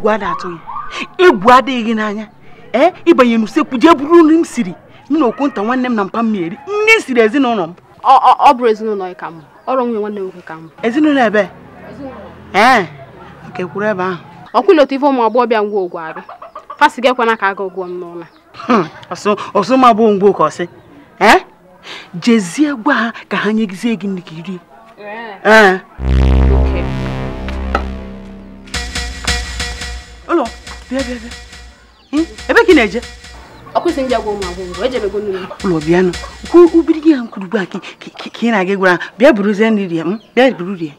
egwu a na-atụ ya adịghị n'anya ee ịbanye n'usekwu jee bụrụ nri m siri m na nta nwanne m na mpa nri m siri ezinụlọ m ọ bụrụ ezinụlọ ka m ọrụ nwunye nwanne nwoke ka m ezinụlọ ebe ee nke kwuru ebe ahụ otu ife ụmụ ngwa ogwu arụ ka aga ụgwọ m n'ụlọ hmm, bụ ngwa ọsị jezie gwa ha ka ha nyegizie gị nri bịa bịa bịa hmm? ebe ka ị na-eje ọkwụsị ndị agwọ ụmụ agwụgwọ ejebego ubiri gị ha nkwurugbu a ka ị na-aga gwara bịa bụrụzie nri rie hmm? bịa buru rie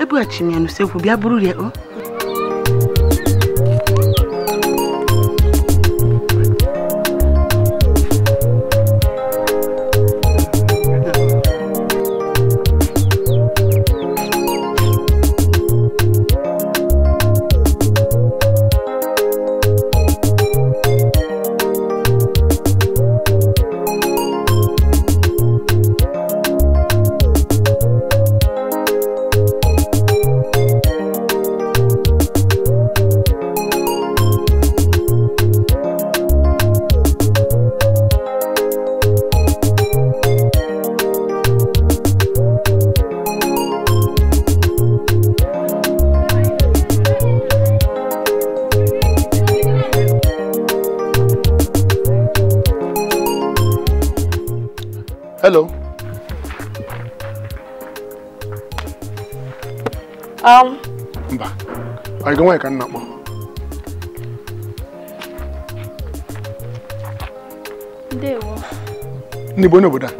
ebughachiri m ya n'usekwu bịa buru rie o hmm? Hello. Um. Mba, anyị ga nwaanyị ka nna kpọ. Ndewo. Ndị bụ onye obodo a?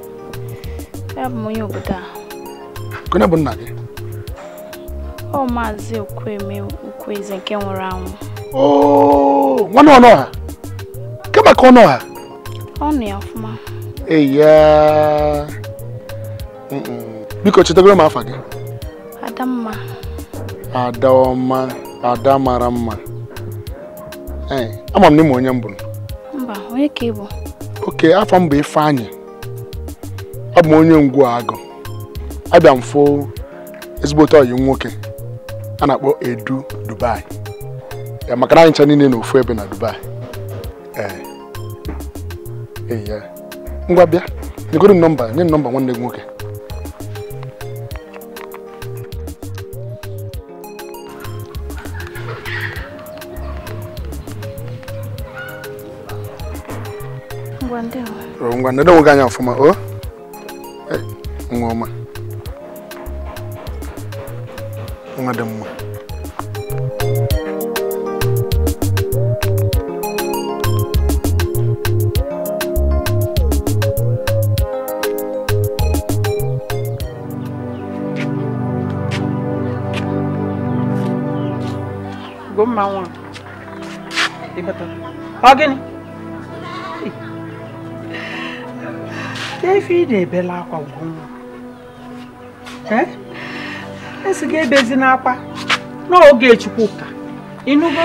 Ya bụ onye obodo a. Onye bụ nna gị? Ọ maazị Okwueme Ukwueze nke nwụrụ anwụ. Ooo oh, nwanne ọnụ ọha? Kemaka ọnụ ọha? Ọnụ ya fụ. eya biko chetagoro m afa gị Ada mma. ada mara mma ee ama m na onye m mba onye ka ị bụ oke afọ m bụ Ifeanyị abụ m onye ngwu agụ abịa m fụ ezigbote ọyị nwoke a na-akpọ Edu Dubai maka na anyị ncha niile n'ofu ebe na Dubai ee eh. ngwa bịa nyegoro nọmba nye nọmba nwanne gị nwoke ngwa oh, nede nwoke anya ọfụma o oh. eh, nwa ọma nwa dị mma ọ gịnị efi ị na ebele akwa gwụnwa esi e gị ebezi n'akwa n'oge Chukwuka ịnụgo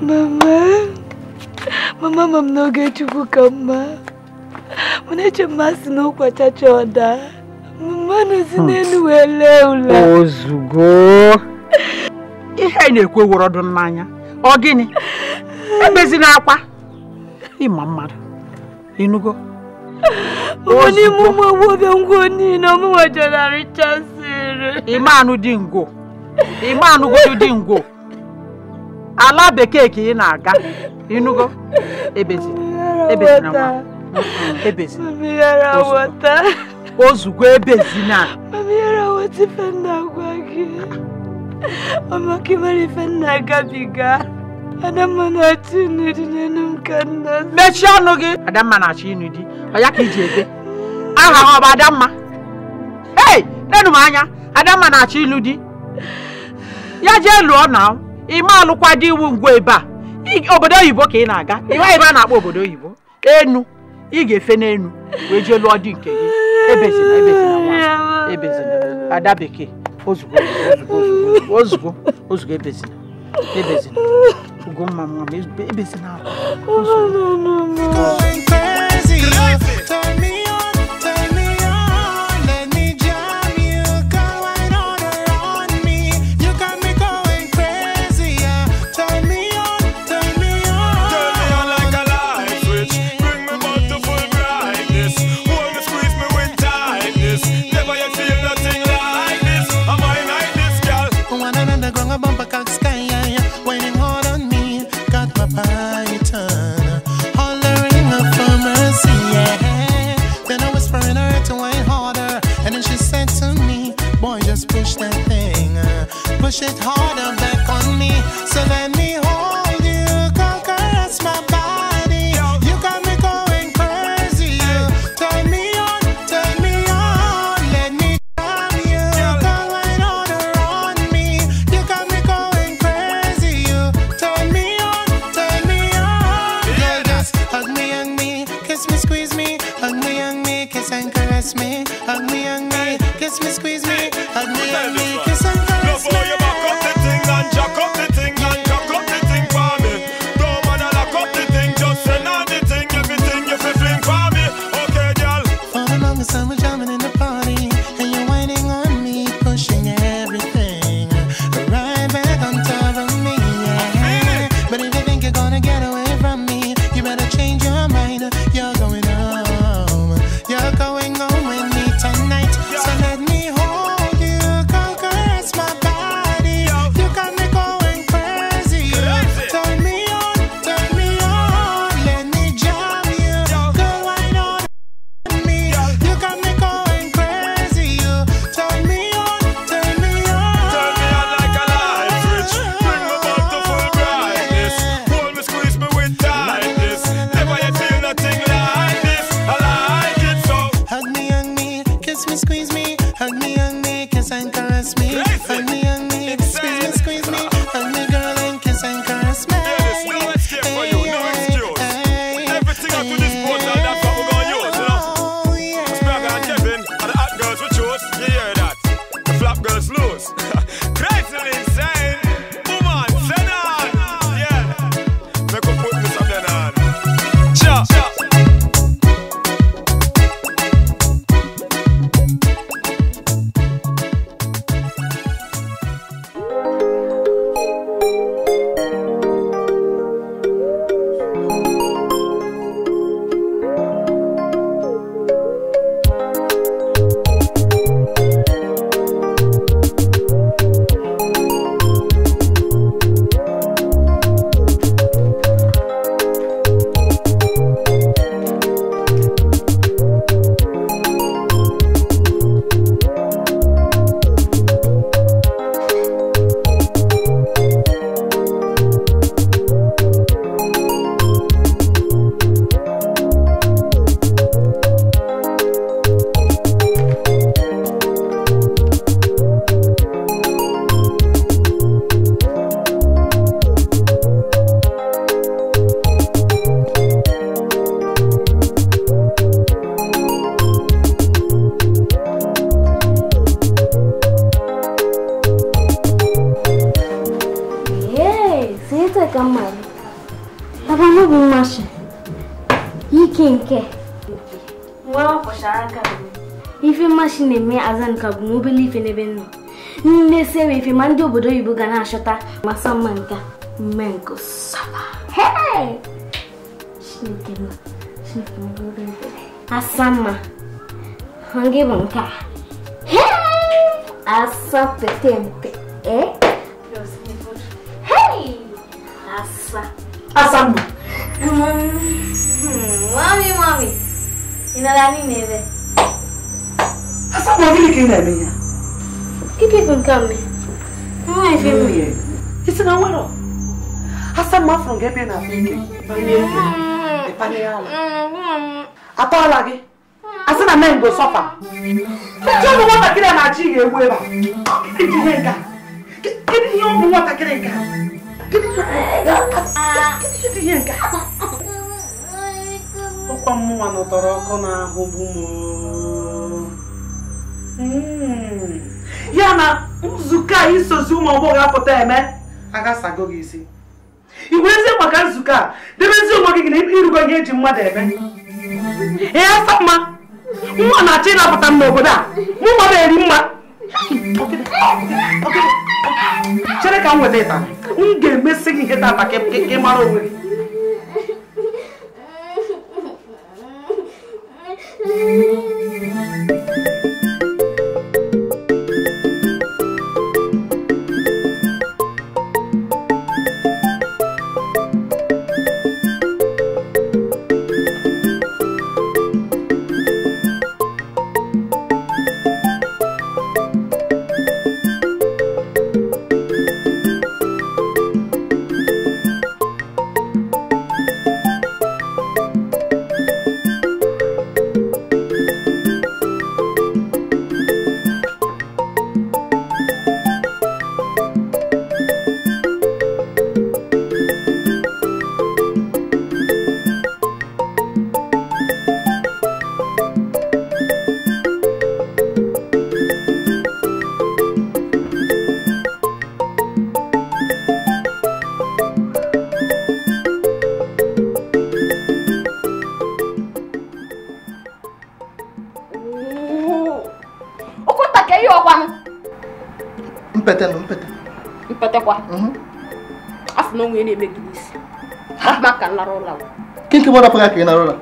mama mama ma m n'oge Chukwuka mma mana eche m asị na ụkwachacha ọda mmanụ si hmm. n'elu wee lee ụlọ. ozugbo ihe na-ekwe were n'anya ọ gịnị ebezina akwa ịma mmadụ ịnụgo ụmụ n'ime ụmụ agbọghọ ngwo niile ọmụnwa jenara chasịrị ịma anụ dị ngwo ịma anụgodu dị ngwo ala bekee ka ị na-aga ịnụgo ebezina ebezina nwa ebezina ozugbo ebezina ọ maka ịmara ife nna gabiga Adamma na-achọ ịnụ di n'elu m ka nna mechie ọnụ gị Adamma na-achọ ịnụ di ọ ya ka iji ede aha ọ bụ Adamma ei lenu m anya Adamma na-achọ ịlụ di ya jee lụọ na ịma alụkwa di iwu ngwa ebe a obodo oyibo ka ị na-aga ịma ebe a na-akpọ obodo oyibo enu ị ga-efe n'enu wee jee lụọ di nke gị ebezina ebezina ebezina ada bekee ozugbo ozugbo ozugbo ozugbo ebezina ebezina goma uma vez, bebe sinal. Oh, não, não, push it harder back on me. So budui buganacha, tá? Maçã manca. Mango soba. Hey! Shinigema. Shinigema budui budui. Asama. Hangi manca. Hey! Asa petente. Eh? Hey! Asa. Asama. Mami, mami. Inalani neve. Asama, vini kina minya. Keep it from coming. Nwaanyị mmiri. Isi na nwere asa mma afọ gị ebe na afọ ike panye ala gị asị na mengo sọfa nwatakịrị na-achị ga-egbu ebe a kedu ihe ọgwụ nwatakịrị ihe nke ụkwa mmụnwa nọtọrọ ọkụ n'ahụ ya na nzukọ a isozi ụmụ agbọghọ apụta eme agasago gị isi ị wezie maka nzukọ a debezi ụmụ gị na ịrụgo ihe eji mmadụ eme ee asa mma nwa na-achọ ịnapụta m n'obodo a mụnwa na-eri mma chere ka m weta ịta m ga-emesi gị ihe tata ka ị mara onwe gị Thank you. narola kinki mo rapuga ke narola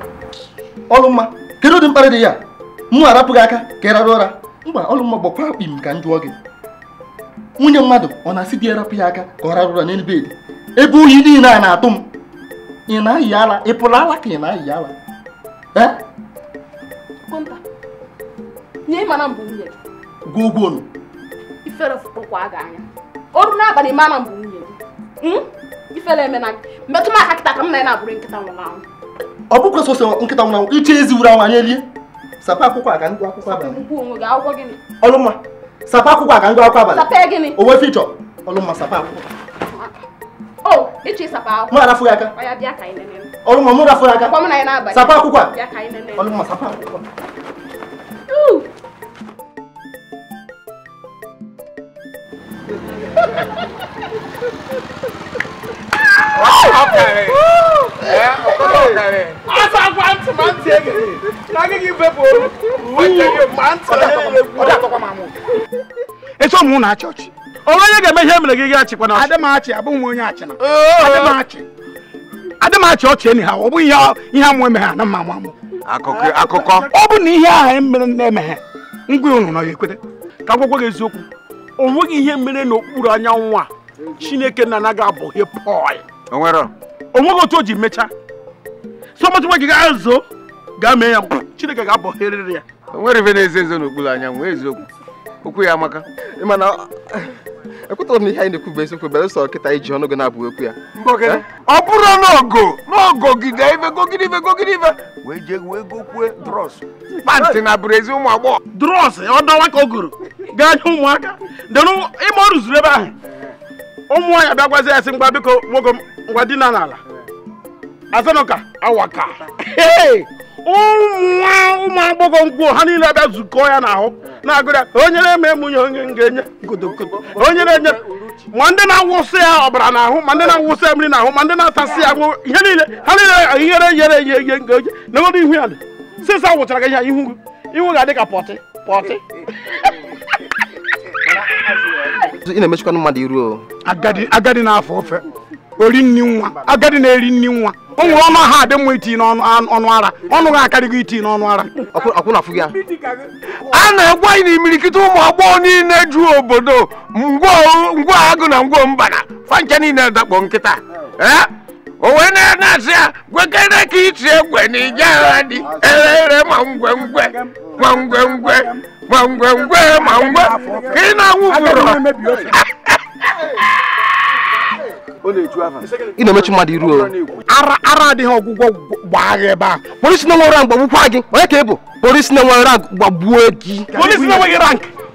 olumma kedu din pare de ya kan mu arapuga aka ke narora mba olumma gbakwa akpim ka njụọ gị nwunye mmadụ ọ na-asị di erapụ ya aka ka ọ rarụra n'elu bedi ebe ohi niile a na-atụ m ị na-ayị ala ị e pụrụ ala ka eh? ị na-ayị ala gwa ogwonu ifere fụkpọkwa aga anya ọrụ n'abalị mara mbụ metụ m ka m na-abụrụ nkịta ọ bụkwa sọsọ nkịta nwụrụ anwụ iche ezi wuru anwụ anyị elie sapa akwụkwọ a ka ngụ akwụkwọ abalị ọlụmma sapa akwụkwọ aga ka akwụkwọ abalị onwe fichọ ọlụmma sapa akwụkwọ ya aka ọlụmma mụ ya aka sapa akwụkwọ a ọlụmma sapa akwụkwọ Ha ha ha ha eso m na achọchị onwe onye ga-eme ihe mere gị gị achịkwa na adịmachi abụghị m onye achị na ọchị enyi ọ ihe amụ amụ akụkọ ọ bụ na ihe ahụ mere na-emeghe ngwa unu ya ekwete ka gwagwa gị eziokwu o nweghị ihe mere n'okpuru anyanwụ a chineke na anaghị abụghị onweghị otu o ji mechaa sọmatụ nwa gị ga-azụ gaa mee ya chineke ga-abọherịrị ya onwere ife na-eze nze anya anyanwụ eziokwu okwu ya amaka mana ekwetara m ihe anyị na-ekwu bụ eziokwu belụsọ kịta iji ọnụ gị na-abụ okwu ya ọ bụrụ n'ogo n'ogo gide ife gogide ife gogide ife wee jee wee gokwue dros pantị na bụrụ ezi ụmụ agbọghọ dros ọ dọwa ka o goro gaa nye ụmụaka ịma ọ rụzuru ebe ahụ ụmụ nwaanyị bịagwazi ya sị a biko nwoke ngwa dina n'ala azanụka awaka ụmụ agbọghọ mkpu ha niile abịa zukọọ ya n'ahụ na-agụrịa onyere m emunye onye ga-enye godogodo onye na-enye ma ndị na-awụsị ya ọbara n'ahụ ma ndị na-awụsị ya mmiri n'ahụ ma ndị na-atasị ya niile ha niile ihere ihe na ihu ya sịsa wụchara gị ihe ihu ihu ga-adị ka pọtị pọtị ị na-emechikwa mmadụ iru agadi agadi na-afọ ofe ori nni nwa agadi na-eri nni nwa o nwere ọnụ ha adị mma iti n'ọnụ ara ọnụ ha akarịghị iti n'ọnụ ara a na-egbu anyị na imirikiti ụmụ agbọghọ niile ju obodo ngwa agụ na ngwa mbana fancha niile dakpọ nkịta e, o wee na-asị ya gwekere ka iti egwe na ije agha dị ere ere ma ngwengwe ma ngwengwe ngwengwengwe ma ngwe ka ị na-anwụfụrụ ị na-emechu mmadụ iru ara ara adịghị ọgwụgwọ gbaa gị ebe a polisi na nwere mgbagbukwa gị onye ka ị bụ polisi na nwere gbagbuo gị polisi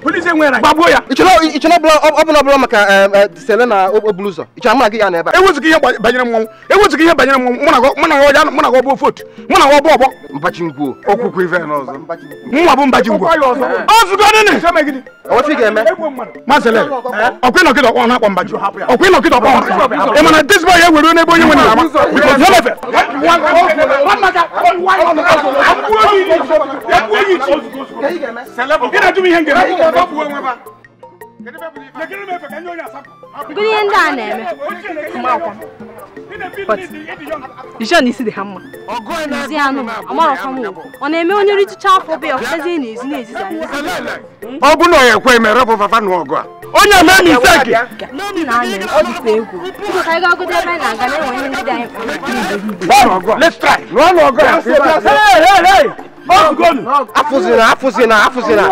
gbagbuo ya ọbụla ọbụla maka sele na okpoburu ụzọ ịchọrọ mụ na gị ya na ebe a ewezughị ihe banyere mmọnwụ ewezughị ihe banyere mmọnwụ mụ na ya mụ na gị ọbụ ofe mụ na gị ọbụ ngwuo n'ọzọ bụ ngwuo ga-eme masele ọkwa ịnọkịta ọkpọ na-akpọ mbachi ọkwa ịnọkịta ị mana ya ewere n'ebe onye nwere ama lefe ihe ihe ndị a na-eme John isi m ọ na-eme onye afọ na na ọ bụ na ọ ya na ọgụ onye mee misteki ọ dịkwa egwu ka anyị gagodo ebe anyị na-aga na-enwe ihe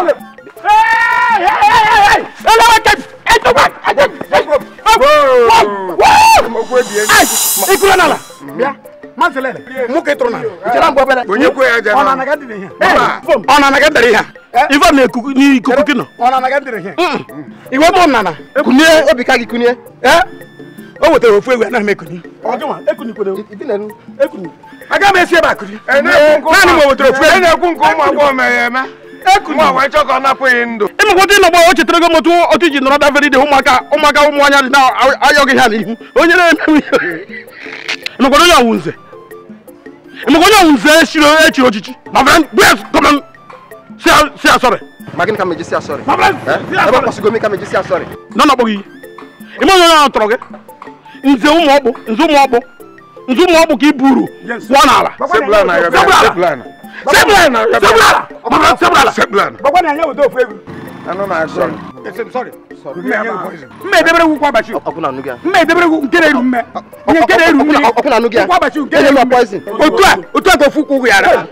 ikuru n'ala bịa manselele mụka na n'ikuku gị nọ iwe kunie obi ka gị kunie o wetara ofu egwu anaghị m ekuni aga m esi ebe akụri naanị m wetara ofu egwu nwa wee chọọ não, ọ napụghị você ịmakọta ịnọgba o chetara gị otu otu iji nọrọ davere ide ụmụaka ụmụaka ụmụanya dị na-ayọ não. ha n'ihu onye na-emewu ịmakọta onye ọwụ nze ịmakọta onye ọwụ nze echiri echiri ochichi você fere bụya kọma si sei, ma gịnị ka meji si asọrị eh? ebe ọkwụsịgo m ka meji si asọrị nọ na-akpọ gị ime onye ọrụ tọrọ gị nze ụmụ ọkpụ nze ụmụ ọkpụ nze você ọkpụ ka i buru kwụọ n'ala Sebulana! Sebulana! Mama, Sebulana! Sebulana! na action. Yes, I'm sorry. Sorry. Mme debere wu kwa bachi. Okuna nuga. Mme debere wu nkere ru mme. Nye nkere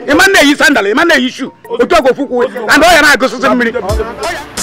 a, na yi sandal, ima na yi shoe. a go fuku na go mmiri. Oya.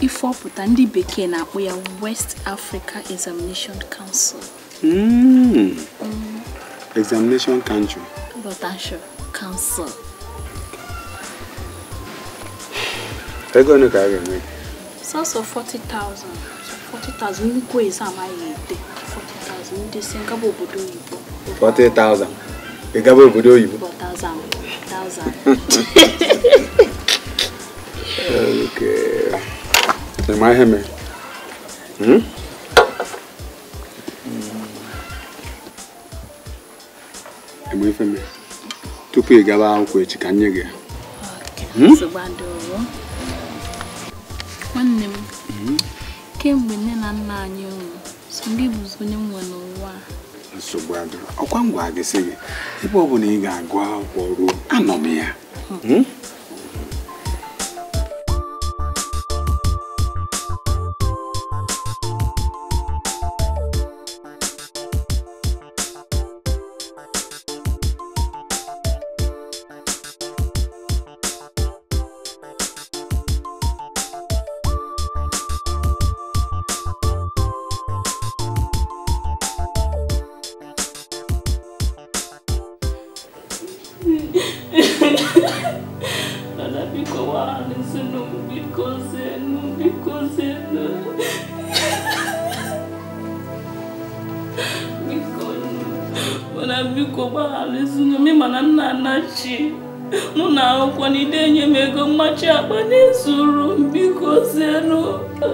ifọpụta ndị bekee na-akpọ ya West Africa Examination Council. Mm. Mm. Examination Council. Rotation Council. ego ole ka a ga-enwe? sọsọ 40,000 40,000 nnukwu eze amaghị ete 40,000 ndị si ngaba obodo oyibo 40,000 ị gaba obodo oyibo 4,000 4,000 okay. ma ihe mere eme ife mere tupu ị gaba akwụkwọ echi ka nye gị nwanne m kemgbe nne na nna anyị nwụrụ so gị bụzi onye n'ụwa nsogbu adịrọ ọkwa m gwa gị sị gị ebe ọ bụla ị ga-agụ akwụkwọ ruo anọ m ya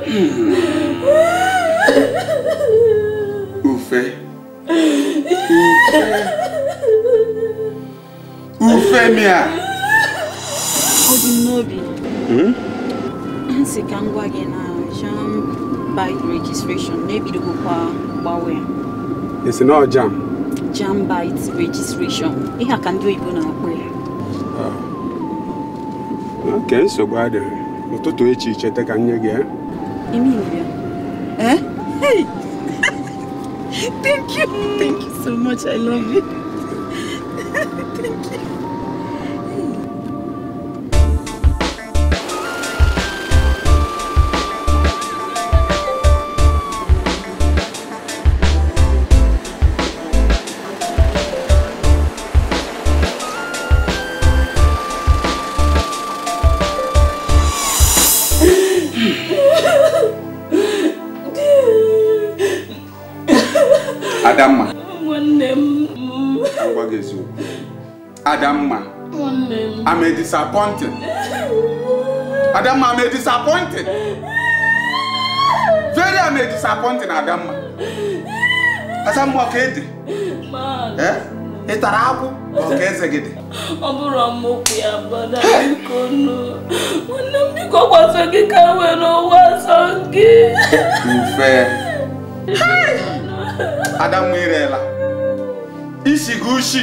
Ufe. Ufe. Ufe mia. Ọ dị n'obi. ka ngwa gị na jam bike registration na-ebidogokwa gbawe. Esi na jam? Jam bite registration. Ihe a ka ndị oyibo na-akpọ ya. Oke nsogbu adịrị, Ụtụtụ echi cheta ka nye gị eh? Emilia. Eh? Hey! thank you. Thank you so much. I love you. disappointed. Adamma, I'm a disappointed. Very I'm a disappointed, Adamma. Asamwa eh? Man. Eh? It's a Okay, Ị tara akwụ ka ọka eze gị dị? Ọ bụrụ ọmụkwụ ya bada biko nụ. Nwanne m biko gwaso gị ka were ụwa sọ I'm Mfe. Adamma irela. Isi gị ushi.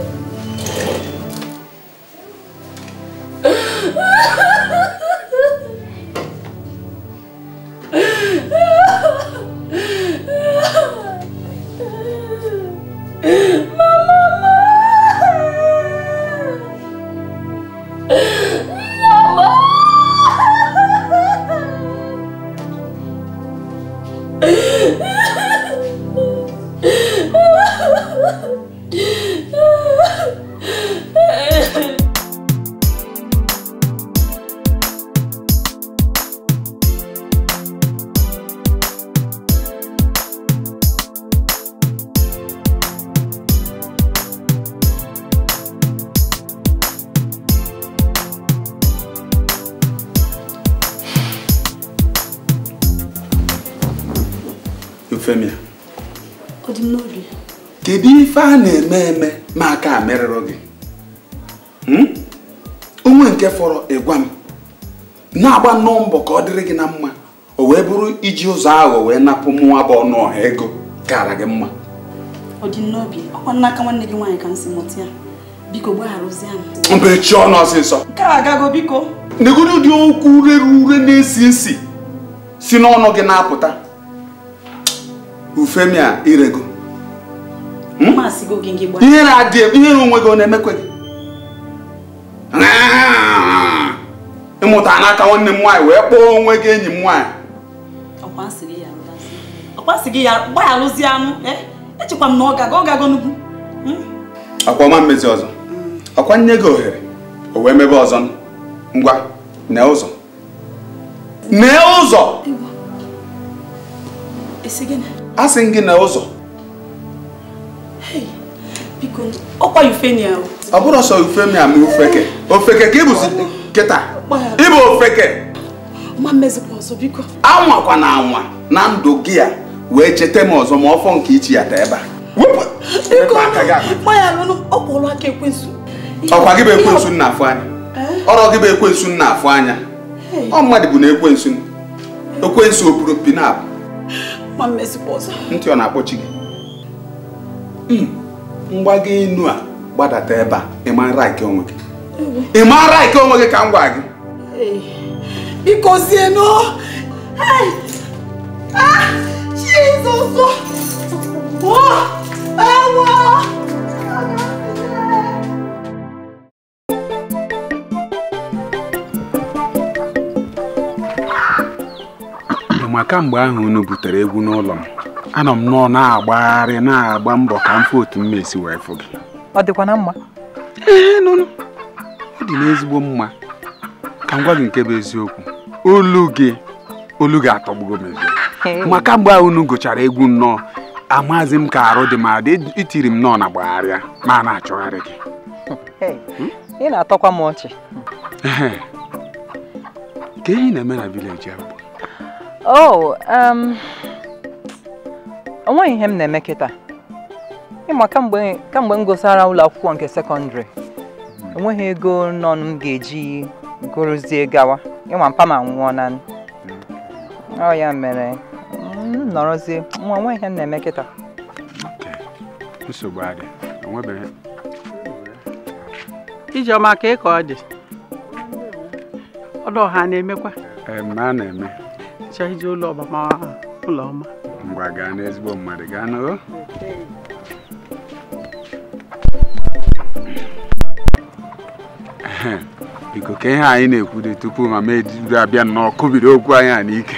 Femi a ọ dị m n'obi kedu ife a na-eme eme ma aka a merụrụ gị hmm? onwe nke fọrọ ịgwa m na-agba nnọọ mbọ ka ọ dịrị gị na mma o wee bụrụ iji ụzọ aghọ wee napụ mụnwa bụ ọnụ ọha ego kara gị mma ọ dị n'obi ọ ọkwa n'aka nwanne gị nwaanyị ka m si mụta ya biko gbagharụzie m mbechi ọnụ ọsịsọ nke a agago biko negodo dị okwu rere ure na-esi nsi si n'ọnụ gị na-apụta bụ femi a irego ihere adịghị ihere onwe gị ọ na-emekwe gị ịmụta n'aka nwanne m nwaanyị wee kpọọ onwe gị enyi m nwaanyị ọkwa ọma mmezi ọzọ hmm. ọkwa nye gị ohere o wee mebe ọzọ ngwa na ụzọ na ụzọ a sị gị na ụzọ biko ọkwa Ufenia ọ bụrụ ọsọ Ufenia ma ofeke ofeke ka ịbụzi kịta ịbụ ofeke anwakwa na anwa na ndụ gị a wee cheta m ọzọ ma ọfọ nke ichi ya taa ebe a ọkwa gị bụ ekwensu nna afụ anya ọrọ gị bụ ekwensu nna afụ anya ọ mmadụ bụ na ekwensu ekwensu opuru pinapụ ma mmezikwa ọzọ ntị ọ na-akpọchi gị hmm. mgbago enu a gbadata ebe a ịmara nke onwe gị ịmara nke onwe gị ka m gwa gị biko zienụ ah, Jizọs! Ewo! ma kamgbe ahụ unu butere egwu n'ụlọ m anọ m nọ na-agbagharị na-agba mbọ ka m fụ otu m esi wee fụ gị ọ dịkwa na mma ee nụnụ ọ dị n'ezigbo mma ka m gwa gị nke bụ eziokwu olu gị olu gị atọgbugo m ezi ma kamgbe ahụ unu gụchara egwu nnọọ amazi m ka arụ dị m adị itiri m nọọ na gbagharịa ma a na-achọgharị gị ị na-atọkwa m ọchị ka ihe na-eme na vileji ahụ ọ oh, um, nweghị ihe m na-eme kịta ịma kamgbe m gụsara ụlọ akwụkwọ nke sekọndịrị enweghị ego nọ m ga-eji gụrụzie gawa ịma mpa ma nwụọ na ọ ya mere nọrọzie nwa onweghị ihe m na-eme kịta nsogbu ijeọma ka ị ka ọ dị ọdụ ọha na-emekwa a na-eme hicha ụlọ ụlọ ọma mgbe gaa n'ezigbo mmadụ gaa n'o biko ka ihe anyị na-ekwu tupu ma ma ejiri abịa nnọọ kụbido okwu anyị a n'ike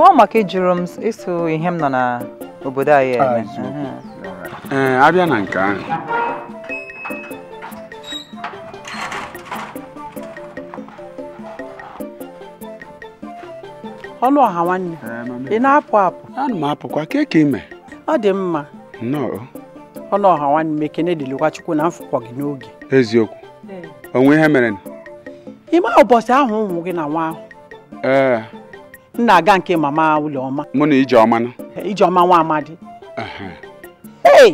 ọ maka ịjụrụ m iso ihe m nọ n'obodo anyị eme ee abịa na nke ahụ ọnụ ọha nwanne ị na-apụ apụ ana m apụkwa ka ka ime ọ dị mma nnọọ ọlụ ọha nwanne e m ekene dịlịkwa chukwu na mfụkwa gị n'oge eziokwu onwe ihe mere ime ụbọchị ahụ ụmụ gị na nwa ahụ ee m na-aga nke mama ụlọọma. mụ na ijeọma ijeọma nwa amadi ee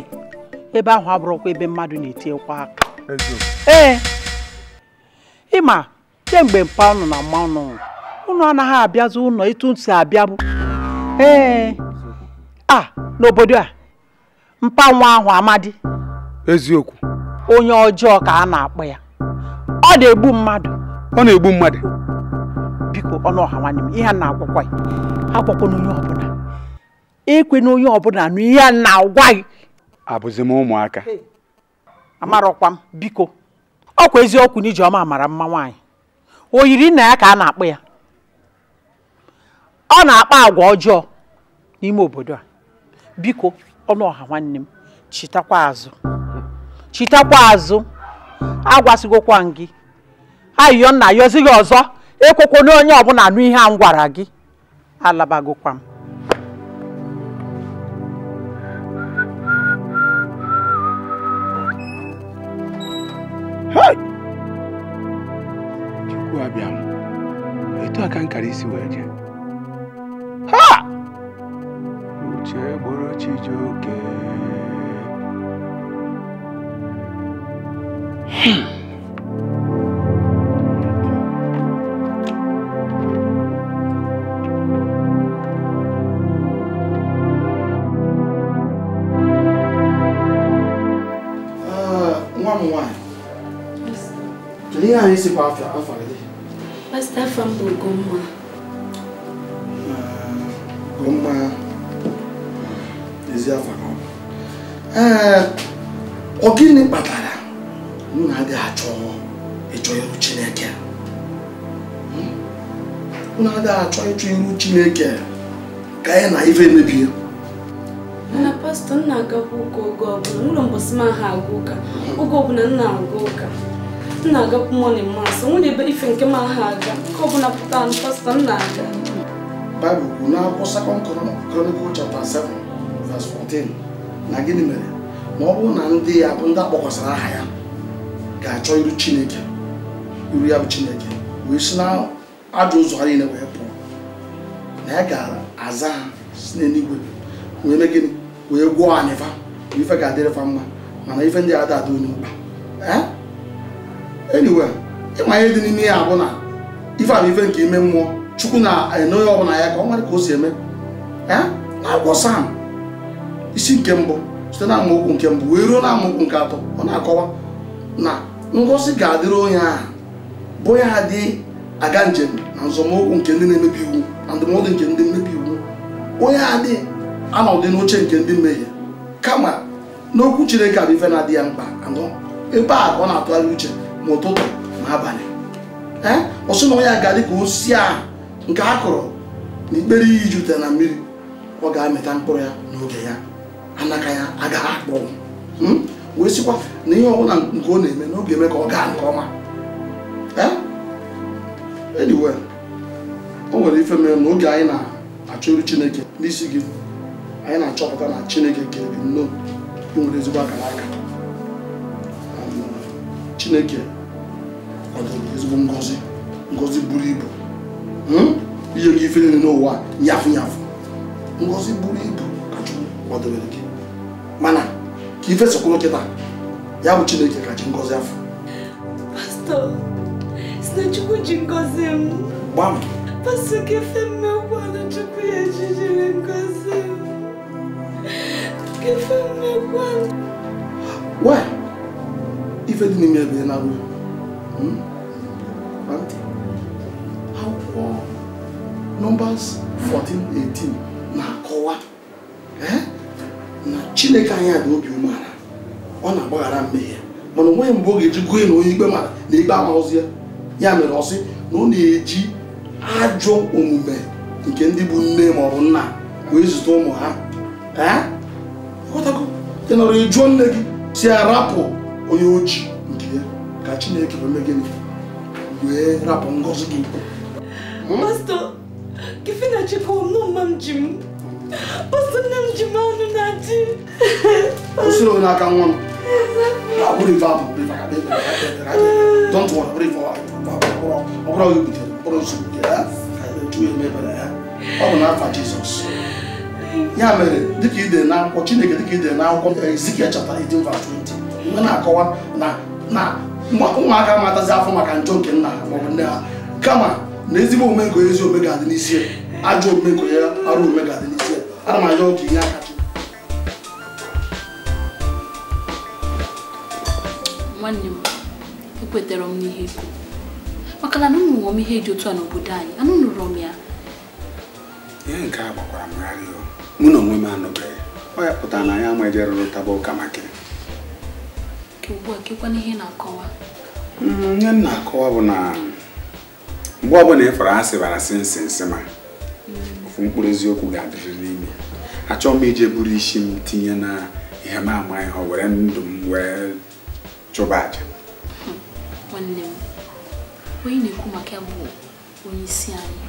ebe ahụ abụrụkwa ebe mmadụ na-etinyekwa aka ee ịma kemgbe mpa ụnụ na mma ụnụ unu anaghị abịazi ụlọ ịtụ ntị abịa ee a n'obodo a mpa ahụ amadi eziokwu onye ọjọọ ka a na-akpọ ya ọ na-egbu mmadụ ọ na-egbu mmadụ biko ọnụ ọha nwanne m ihe a na-agwakwa ya agwakwa na onye ọbụla ekwe na onye ọbụla na ihe a na-agwa gị abụzi m ụmụaka amarọkwa m biko ọkwa eziokwu na ijeọma mara mma nwaanyị o yiri nna ya ka a na-akpọ ya ọ na-akpa agwa ọjọọ n'ime obodo a biko ọnụ ọha nwanne m chetakwa azụ chitakwa azụ agwasịgokwa m gị ayịyọ nna yọzighị ọzọ ekwekwo n'onye ọbụla nụ ihe a m gwara gị alabagokwa m chukwu abịa m etu a nkara isi wee jee Chijuke. Uh, hmm. ah, one, m nwaanyị kedu ihe anyị ịchụ ihu chineke ka ya na ife mebie mana pastọ nna agakwa ụka oge ọbụla n'ụlọ mbọsị m aha aga ụka oge ọbụla nna aga ụka nna agakwa mọnin mas nwere ebe ife nke m aha aga nke ọbụla pụta anụ pastọ nna aga baịbụl kwuru n'akwụkwọ sekọnd kronikụl chapta 7 vers 14 na gịnị mere ma ọ bụrụ na ndị ya bụ ndị akpọkwasara aha ya ga-achọ iru chineke iru ya bụ chineke wee si na ajọ ụzọ ha niile wee na ya ga-aza ha si n'eluigwe wee mee gịnị wee gwọọ anyị fa ife ga-adịrị fa mma mana ife ndị ada ada onye mkpa anyway ịma ihe dị n'ime ya bụ na ife abụ ife nke ime mmụọ chukwu na ọ e, onye ọbụla ya ka ọ mara ka o si eme na-agwọ sam isi nke mbụ site na amaokwu nke mbụ wee ruo na amaokwu nke atọ ọ na-akọwa na ngosi ga-adịrị onye aha bụ ya dị aga njem na nzọmụkwụ nke ndị na-emebi iwu na ndụmọdụ nke ndị mmebi iwu onye adị anọdụ n'oche nke ndị mmehie kama n'okwu chineke bụ ife na-adị ya mkpa anọ ebe a ka ọ na-atụgharị uche ma ụtụtụ ma abalị ee ọsụ na onye ga-adị ka osisi a nke a kụrụ na ikpere iyi jute na mmiri ọ ga-amịta mkpụrụ ya n'oge ya anaka ya agaghị akpọnwụ hmm? wee sịkwa na ihe ọbụla nke ọ na-eme n'oge eme ka ọ gaa nke ọma ee anyway o nwere ife mere na oge anyị na-achọrụ chineke n'isi gị anyị na-achọpụta na chineke gere gị nnọọ ị nwere ezigbo aka n'aka chineke kwadoro ezigbo ngozi ngozi buru ibu hmm? ihe gị ife niile n'ụwa nyafụ nyafụ ngozi buru ibu ka Chukwu kwadobere gị mana ka ife kịta ya bụ chineke ka ngozi afọ na Chukwu ji ngọzi m. Gbam. Pasta ka efe mmekwu anụ Chukwu ya ejijiri ngọzi m. Ka efe mmekwu anụ. Wa! Ife dị n'ime ebe na agwụ. Ntị. Akwụkwọ nọmbas 1418 na-akọwa eh? na Chineke anya dị obi umeala ọ na-agbaghara mmehie mana onweghị mgbe ọ ga-eji gụọ na onye ikpe mara na ikpe amaghụzi ya ya mere ọsị na ọ na-eji ajọ omume nke ndị bụ nne ma ọ bụ nna wee zụta ụmụ ha ị nọrọ ịjụọ nne gị si arapụ onye oji nke ya ka Chineke wee mee gịnị wee rapụ ngọzi gị m na kwụsịrị onye aka nwa m ife ọbụrụ onye butere mkpụrụ nsogbu nke ya ọ bụ n'afa jizọs ya mere dịka na akwụkwọ chineke dịka ide na akwụkwọ ezikiel 20 mgbe na-akọwa na ụmụaka matazi afọ maka njọ nke nna ha maọbụ nne ha kama na ezigbo omume nke ezi omume ga-adị n'isi ajọ omume nke ya arụ omume ga-adị n'isi ana m arịọ aka nwanne m ekwetara m n'ihe maka na anụnụ nwụọ m ihe dị otu a n'obodo anyị anụ nụrụ m ya ihe nke a gbakwara m gharịa mụ na onwe m anụbeghị ọ ya pụtara na ya ama eje rụrụ taba ụka maka nke ugbu ihe na-akọwa mm, ihe m na-akọwa bụ na mgbe ọbụla ịfọrọ asị bara sị nsị nsị ma mm. ofu mkpụrụ eziokwu ga-adịrị n'ime achọ m ije buru isi m tinye na ihe m amaghị ha were ndụ m wee chụba aja nwanne m onye na-ekwu maka ya bụ onye isi anyị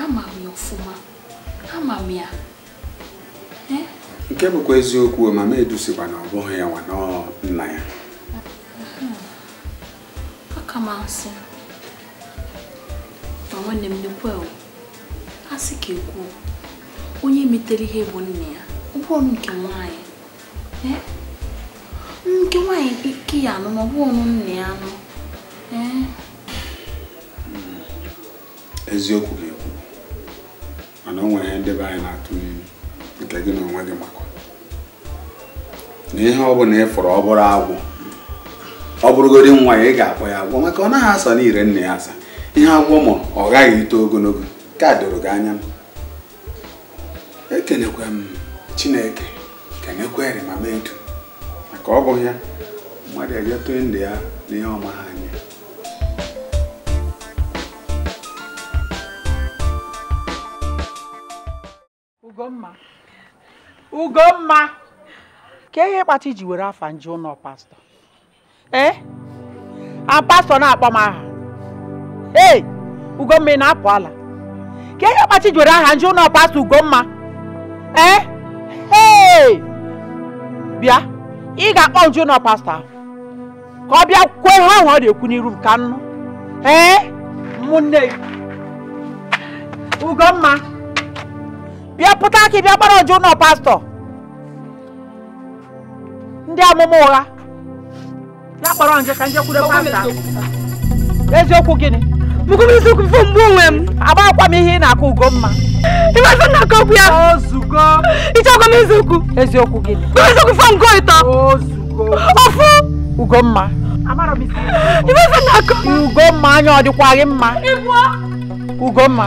ama m ya ọfụma ama m ya nke bụkwa eziokwu mama edusikwa na ọ bụghị ya nwa nna ya aka m asị ma nwanne m nekwe a sị ka ekwuo onye metere ihe bụ nna ya ọ bụrụ nke nwanyị nke eh? nwaanyị ike ya anụ ma ọ ya anụ ee eh? eziokwu ga-ekwu mana o nwere ihe ndebe anyị na-atụ nke gị na onwe gị makwa na ihe ọ bụla ị fụrụ ọ bụrụ ọ bụrụgodi nwa ya ị ga-akpọ ya agwọ maka ọ naghị asa n'ire nna ya asa ihe agwọ ma ọ ghaghị ito ogologo ka doro gị anya m ekenekwa m chineke kenekwa erimama edu maka ọ bụ ya mmadụ ejetụ ndụ ya n'ihe ọma ha Ugo mma ka ihe kpata iji were afa nje ụlọ pastọ ee eh? a pastọ na-akpọ m aha ee Ugomma ị na-apụ ala ka ihe kpata iji were aha nje ụlọ pastọ Ugomma ee eh? ee bịa ị ga-akpọ nje ụlọ pastọ ahụ ka ọ bịa kwuo ha ahụ ọ na-ekwu n'iru ka nnu, ee eh? ụmụnne Ugomma bịa pụta aka bịa gbara ọjụ ụlọ pastọ ndị amụma ụgha na-akpọrọ nje ka nje kwudo pastọ eziokwu gịnị bụkwa eziokwu fụ mgbe onwe m agbakwa m ihe ị na-akụ ugo mma ịmasị na aka okwu ya ịchọkwa m eziokwu eziokwu gịnị eziokwu fọ nke ịtọ ofu ugomma ịmasị na aka ugomma anya ọ dịkwaghị mma ugomma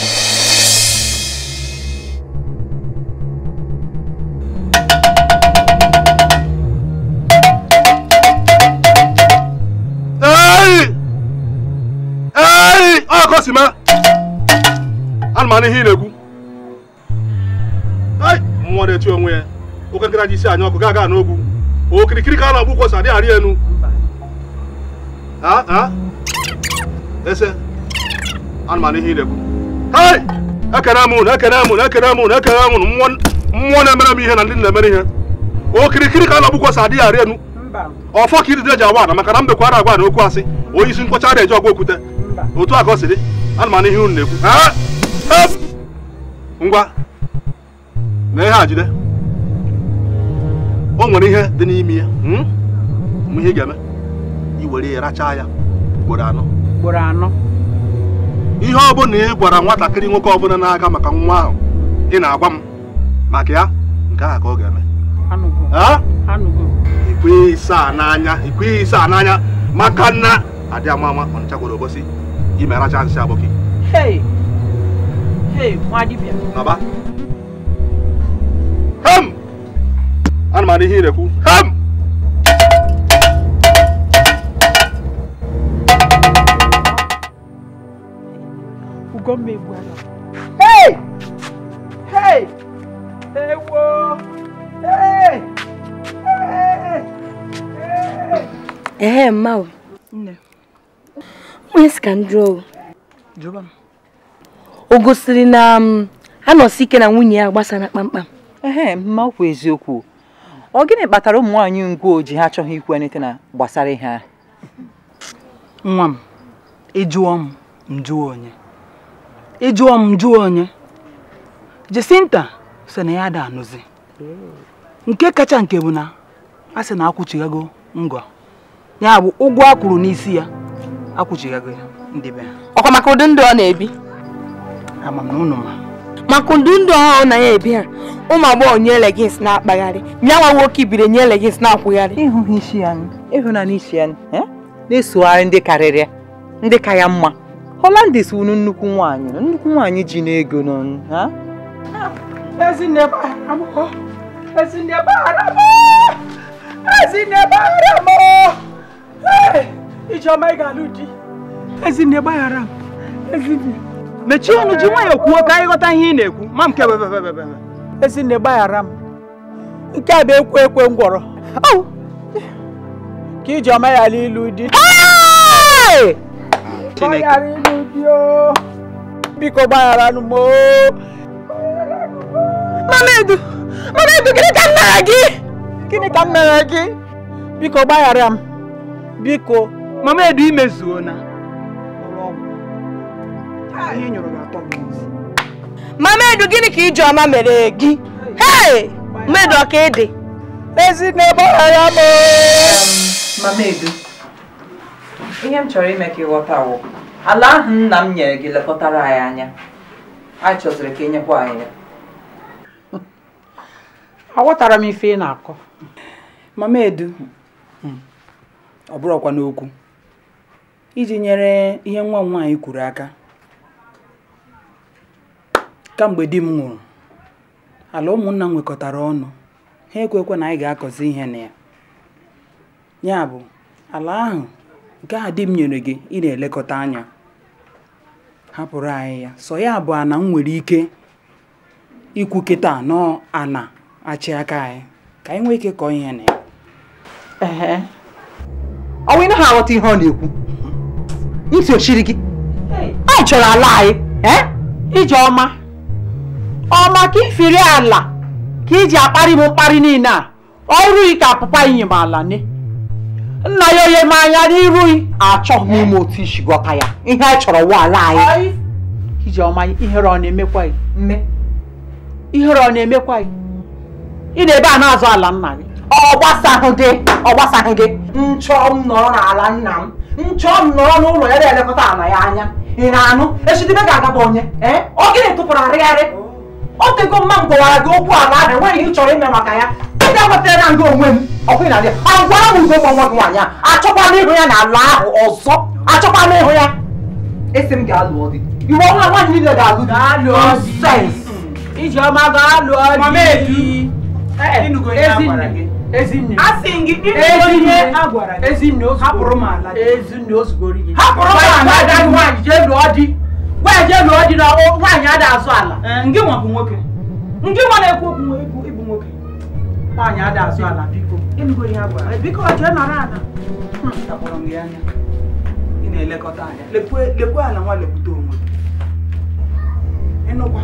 si ma ana m ana ihe ị na-ekwu nwa na-eti onwe ya oke nkịta ji isi anya ọkụ gaa gaa n'ogwu okirikiri ka a na-agbu kwọsa adị arị enu ese ana m ana ihe ị na-ekwu ekene m unu ekene m unu ekene m unu ekene m unu mmụọ na-emere m ihe na ndị na-emere ihe okirikiri ka a na-agbu kwọsa adịghị arị enu ọfọ ka iri ji agwa na maka na mbekwara agwa na okwu asị onye isi nkwọcha na-eji ọgwa okwute otu a ka ọ si dị ana m ihe unu na-ekwu ngwa na ihe a jide o nwere ihe dị n'ime ya hmm? ihe ị ga-eme iwere ya rachaa ya ugboro anọ ugboro anọ ihe ọbụla ị gwara nwatakịrị nwoke ọbụla n'aka maka nwa ahụ ị na-agwa m maka ya nke a ka ọ ga-eme ikwe ịsa n'anya ikwe ịsa n'anya maka na adị ọ ama ọnịcha gwara obosi yi mɛra kyan hyɛ abɔki Hey, hey, mo adi bia naba ham ana ma ne hin rɛ ku ham ugombe bwana hey hey ewo hey hey eh hey. hey. hey. mmawe nne onye ka o gosiri na um, anọsi ike na nwunye ya gbasara kpamkpam ehe ma eziokwu ọ gịnị kpatara ụmụ nwaanyị ngwo ojii ha achọghị ikwu anyịte na gbasara ha nwa m ịjụọ m njụọ onye ịjụọ m njụọ onye Jacinta sị na ya ada anụzi nke kacha nke bụ na a sị na akwụchighago ngọ ya bụ ụgwọ a kwụrụ n'isi ya ya ndị be ha ọkwa maka ụdị ndụ ọ na-ebi ama m na ụnụ ma maka ụdị ndụ ọhụrụ na ya ebi ha ụmụ agbọghọ nye legins na-akpagharị nyanwa nwoke ibiri nye legins na-akwụgharị ịhụghị isi ya ịhụnanya isi ya e? na-esogharị ndị karịrịa ndị ka ya mma holandis wuru nnukwu nwaanyị nnukwu nwaanyị ji n'ego n'ọnụ ha Ezinne bara m Ezinne bara m ọma ị ga-alụ di. Ezinne gbaghara m. Ezinne. Mechie ọnụ ji kwuo ka anyị ghọta ihe ị na-ekwu. Ma m kebebebebebe. Ezinne gbaghara m. Nke a bụ ekwe ekwe ngwọrọ. Ka ya alụ ilu di. gị? Biko gbaghara m. Biko mama edu imezuo na mama edu gịnị ka ijeọma mere gị hei mmedu ọka ịdị ezi n'ebe ọhara m mama edu ihe m chọrọ ime ka ị ghọta wụ ala ahụ nna m nyere gị lekọtara anyị anya anyị chọziri ka nyekwa anyị ya aghọtara m ife ị na-akọ mama edu ọ bụrụkwa n'okwu iji nyere ihe nwa m nwaanyị kwuru aka kamgbe di m nwụrụ ala ụmụnna m nwekọtara ọnụ ha ekwekwe na anyị ga-akọzi ihe na ya ya bụ ala ahụ nke ahụ di m nyere gị ị na-elekọta anya hapụrụ anyị ya sọ ya bụ ana m nwere ike ikwu kịta nọọ ana achị aka anyị ka anyị nwee ike kọọ ihe na ya ị aghọta ihe ọ na-ekwu ntị ochiri gị anyị chọrọ ala anyị eh? ijeọma ọma ọma ka ifiri ala ka iji akparị m mkparị niile a ọrụ ka apụpa inye m ala ne nna ya onye m anya n'irughị achọghị m ime otu isi gwọta ya ihe anyị chọrọ wụ ala anyị ọma ihere ọ na-emekwa gị ihere ọ na-emekwa gị ị na-ebe a na-azụ ala nna gị ọ gbasaghị gị ọ gbasaghị gị nchọ m nọrọ n'ala nna m nchọọ m n'ụlọ ya na-elekọta ana ya anya ị na-anụ echidebe ga-agaba onye ee eh? ọ gịnị tụpụrụ arịgharị ọ tego mma m gwawara gị okwu ala ahụ enweghị ihe ị chọrọ ime maka ya ị ga-agbatara na nga onwe m ọkụ na ya agwara m ugo nwa nwa gị nwaanyị a achọkwala ịhụ ya n'ala ahụ ọzọ achọkwala ịhụ ya esi m ga-alụ di iwe ọhụrụ nwaanyị niile ga-alụ di ijeọma ga-alụ di ezinụgo ya gwara gị di na nwaanyị ada azụ ala ndị nwa bụ nwoke Nke nwa na-ekwu okwu ibu nwoke nwaanyị ada azụ ala biko biko jee nọrọ ala hmm, Akpọrọ m ya anya ị na-elekọta anya lekwe ala nwa lekwute onwe ịnụkwa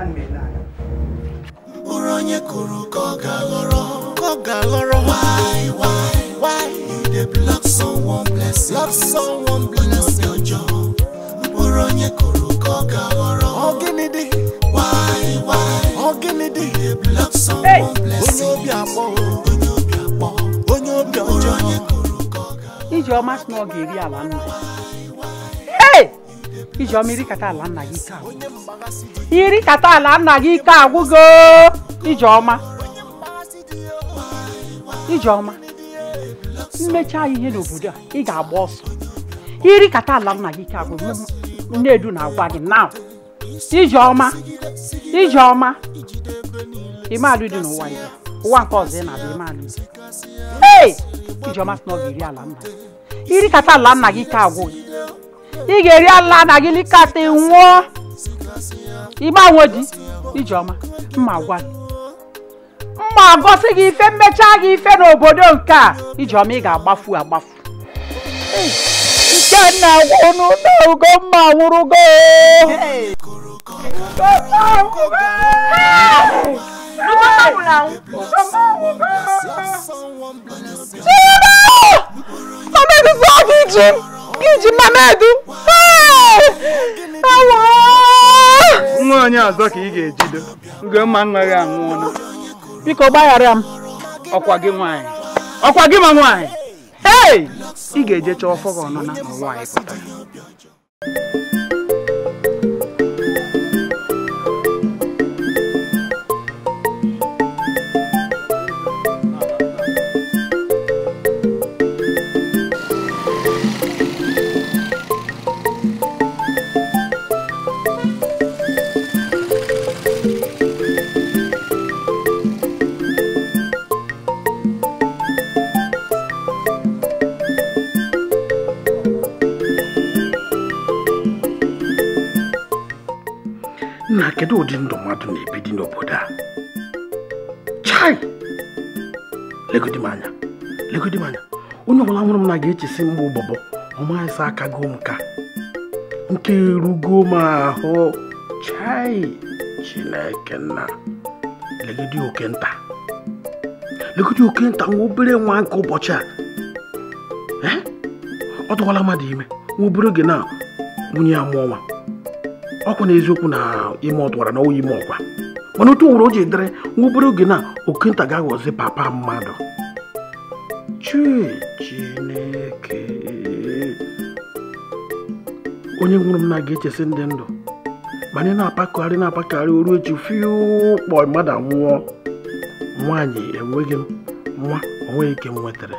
ana na ele anya bụrụ onye kụrụ ka ọ ga-aghọrọ ka ọ ga-aghọrọ why why why you dey block someone blessing block someone blessing ọjọ bụrụ onye kụrụ ka ọ ga-aghọrọ ọ gịnị dị why why ọ gịnị dị you dey block someone blessing onye obi akpọ onye obi akpọ onye obi ọjọ onye kụrụ ka ọ ga-aghọrọ ijeọma si na ọ ga-eri ala nna ijeọma iri kata ala nna gị ike iri kata ala nna gị ike agwụgo Ijeọma Ijeọma mmechaa ihe n'obodo a ị ga-agba ọsọ iri kata ala nna gị ike agwụ nnedu na-agwa gị na Ijeọma Ijeọma imealụ dị n'ụwa ya ụwa nke ọzọ ị na-abịa imealụ dị ee Ijeọma sị na ọ ga-eri ala nna iri kata ala nna gị ike agwụ gị ị ga-eri ala nna gị likata nwụọ igbe di Ijeọma mma gwa gị mma agọsị gị ife mmechaa gị ife n'obodo nke a ijeọma ị ga-agbafu agbafu Ikenna a na Ugomma nwụrụgo ọmeguzo ọgụ iji iji mamedu nwa onye ka ị ga-ejido Ugomma nnaghị biko gbaghara m ọkwa gị nwanyị, ọkwa gị ma nwanyị, ee ị ga ejecha chọọ ọfọ gị ọnụna ma anyị pụtara kedu ụdị ndụ mmadụ na-ebi dị n'obodo a chai legodi m anya legodi m anya onye ọbụla nwụrụ m na ga-echesi mgbe ụbọbọ ọmaịsa aka m ka nke rugo m ahụ chai chineke nna legodi oke nta legodi oke nta nwa obere nwa nke ụbọchị a ọ tụkwala mmadụ ime nwa obere oge na nwunye ya mụọ ọkwụ na eziokwu na ime ọtụwara na ọwa ime ọkwa mana otu nwere o ji dịrị nwa obere oge na okenta ga-aghọzi papa mmadụ chineke onye nwụrụ m na ga-echesi ndị ndụ mana ị na apakọgharị na-apakagharị oru echi fiụkpọ mmadụ nwụọ nwaanyị enweghị m nwa onweghị ike m nwetara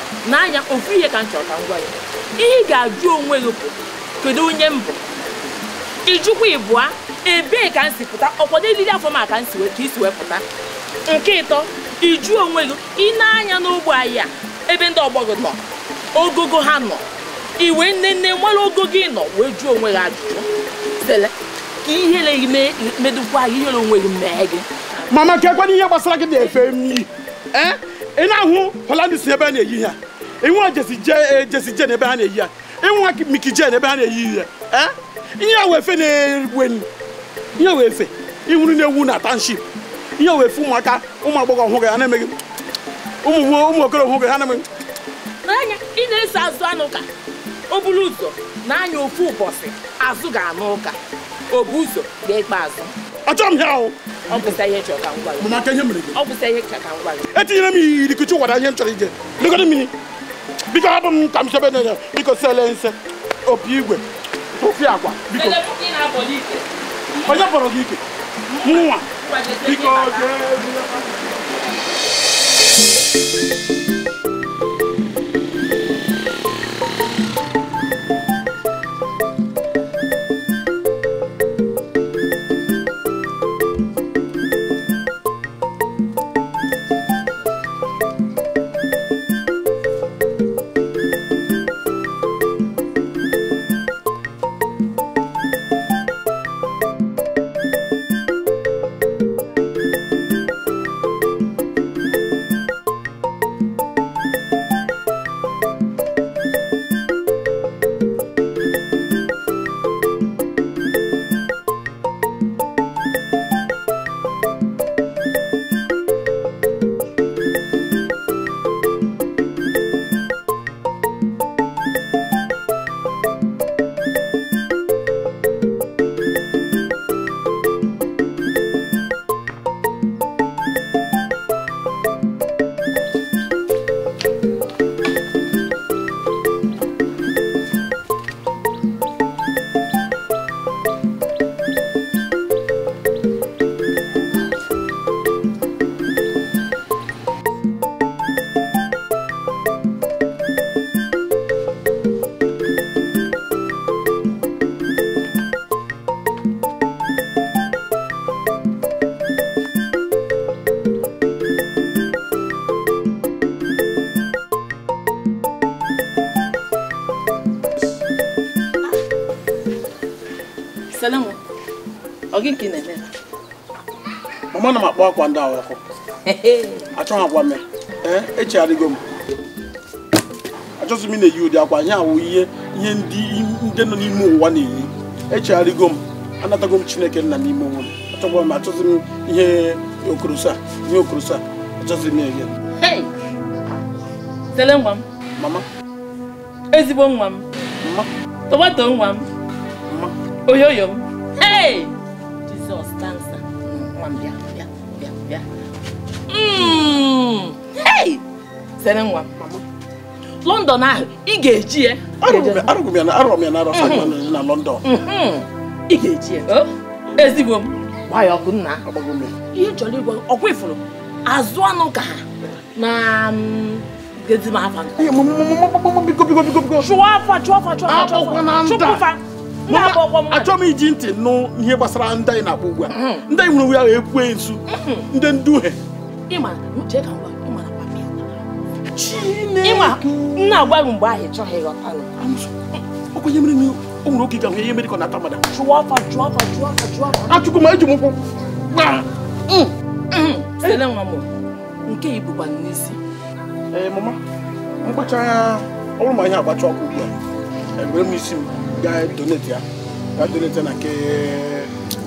n'anya ofu ihe ka m chọrọ ka m gwa ya ihe ị ga-ajụ onwe gị bụ kedu onye m bụ ijukwa ịbụa ebee ka m si pụta ọkwado eriri afọ ma ka m si ka isi wee pụta nke ịtọ ijụ onwe gị ị na n'ogbe anyị a ebe ndị ọgbọ gị nọ ogogo ha nọ iwe nne nne nwere ogo gị nọ wee jụọ onwe gị ajụjụ sele ka ihere gị medụkwa gị ihere onwe gị mee gị mana kekwana ihe gbasara gị na-efe m eh? ị na-ahụ holandis ebe a na-eyi ha ịnwa jesije eh, jesije n'ebe a na-eyi ya ịnwa mikije n'ebe a na-eyi ya eh? ihe a wefe na enyi ihe wefe ịhụrụ na-ewu na township ihe wefe ụmụaka ụmụ agbọghọ ọhụrụ ha na-emeghị ụmụ okorobịa ọhụrụ ha na-emeghị n'anya ị na-eso azụ anụ ụka o buru ụzọ na-anya ofu ụbọchị azụ ga-anụ ụka obu ụzọ ga-ekpe azụ ọ achọrọ m ya ahụ etinyere m ihe iri kụchi ụwara ihe m chọrọ ije lekọta mmiri biko abụ m ka m chebe na biko sele nse opi igwe ofi agwa biko onye kpọrọ gị ike nwa biko jee akwa ndị ahụ ọkụ achọghị akwa eh, echegharịgo m m na-eyi ụdị akwa anyị awụ ihe ihe ndị nọ n'ime ụwa na-eyi echegharịgo m anatago m chineke nna n'ime m m ihe okorosa ihe okorosa m na Mama. Ezigbo nwa m. nwa m. Oyoyo London ahụ ị ga-eji ya m ya na na ya ezigbo m ya ihe chọrọ ọkwa azụ anụ ka ha na achọ m iji ntị nụ ihe gbasara ndị anyị na-akpọ ugbu a ndị anyị nwere onwe ahụ ekwe nsu ndị nduhe ịma ka ngwa ịma nna agwaghị mgbe ahụ ịchọghị ịghọtalụ okenye mere na o nwere oge ga-ahụ ihe mere ka ọ na-ata mmadụ jụọ afa jụọ afa jụọ afa jụọ afa achụkwu ma eji m ụkwụ mm, mm. sele nwa m nke ibukwa n'isi ee mama mkpacha anya ọ bụrụ ma ihe agbacha ọkụ ugbu a ebere m isi m gaa donate ya ga donate ya na nke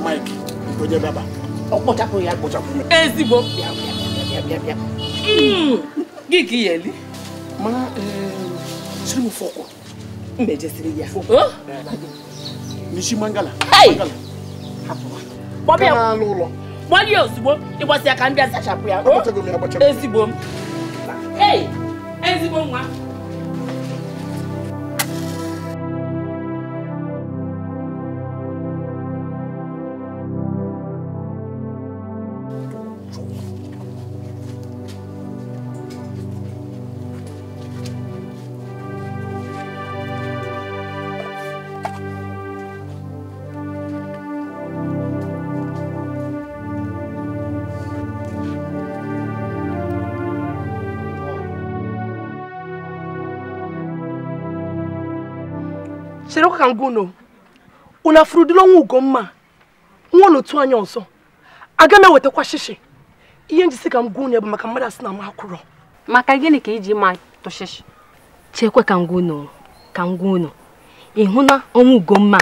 Mike nke onye bịaba ọ kpochapụ ya kpochapụ ezigbo bịa bịa bịa bịa bịa bịa mm. gị ka iyeli ma mana eh, jiri m fọkụ mba ejesiri ya michi mangala kpọbịa n'anụ ụlọ gbanye ya ozugbo ịgbasi aka m bịa zachapụ ya ezigbo m ezigbo nwa ka m gwa unu unu afụrụdịla ọnwa ugomma nwa n'otu anya ọzọ aga m ewetakwa shishi ihe njisi ka m gwa unu bụ maka mmadụ asị na m akwụrọ maka gịnị ka iji ma tụshishi chekwe ka m gwa unu ka m gwa unu ịhụ na ọnwa ugomma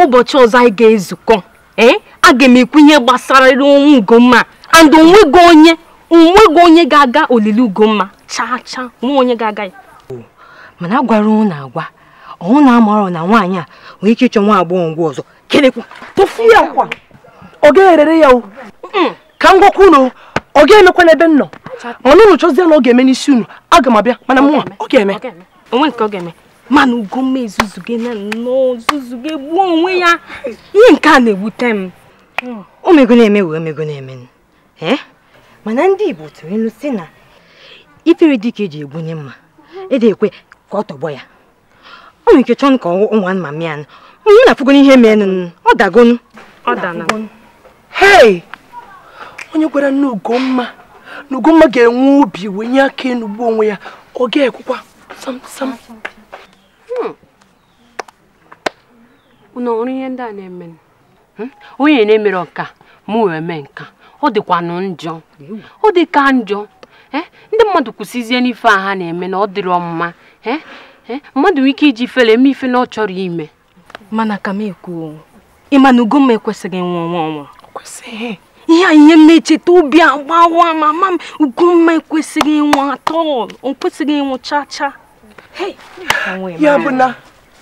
ụbọchị ọzọ anyị ga-ezukọ ee aga m ekwu ihe gbasara ọnwa ugomma and onwego onye onwego onye ga-aga olili ugomma chaa chaa nwa onye ga-aga ya mana agwara unu agwa ọnwụ na-amara na nwaanyị a nwere ike ịchọ nwa agbọghọ ngwa ọzọ kelekwa tụfu ya akwa ọ ga-erere ya o ka m gwakwa unu ọ ga-emekwa n'ebe m nọ mana unu chọzie na ọ ga-eme n'isi unu aga m abịa mana mụnwa ọ ga-eme onwe nke ọ ga-eme mana ugomma ezuzuge na nnọọ zuzuge gbuo onwe ya ihe nke a na-ewute m o na-eme wee mego na-eme mana ndị Igbo tụrụ ilu si na ifere dịka eji egbunye mma ede ekwe ka ọ tọgbọ ya ọ nwere ike chọọ ka ọ anụmanụ ya nụ onye na-afụgo ihe meenụ ọ dagonu ọ dana hei onye gwara nne Ugomma na Ugomma ga-enwe obi wee nye aka enugbu onwe ya ọ ga-ekwukwa sam sam hmm. unu ọrụ ihe ndị a na-eme hmm? onye na-emere ọka mụ wee mee nka ọ dịkwanụ njọ ọ dịka njọ eh? ndị mmadụ kwụsịzie n'ife a ha na-eme na ọ dịrọ mma eh? Eh? mmadụ nwere ike iji fere eme ife na ọ chọrọ ime mana ka m ekwuo ịma na Ugomma ekwesịghị nwa ọnwa ọnwa ihe a ihe na-echeta obi agbawa ma mama m Ugomma ekwesịghị ịnwa atọ o kwesịghị ịnwụ chaa chaa ya bụ na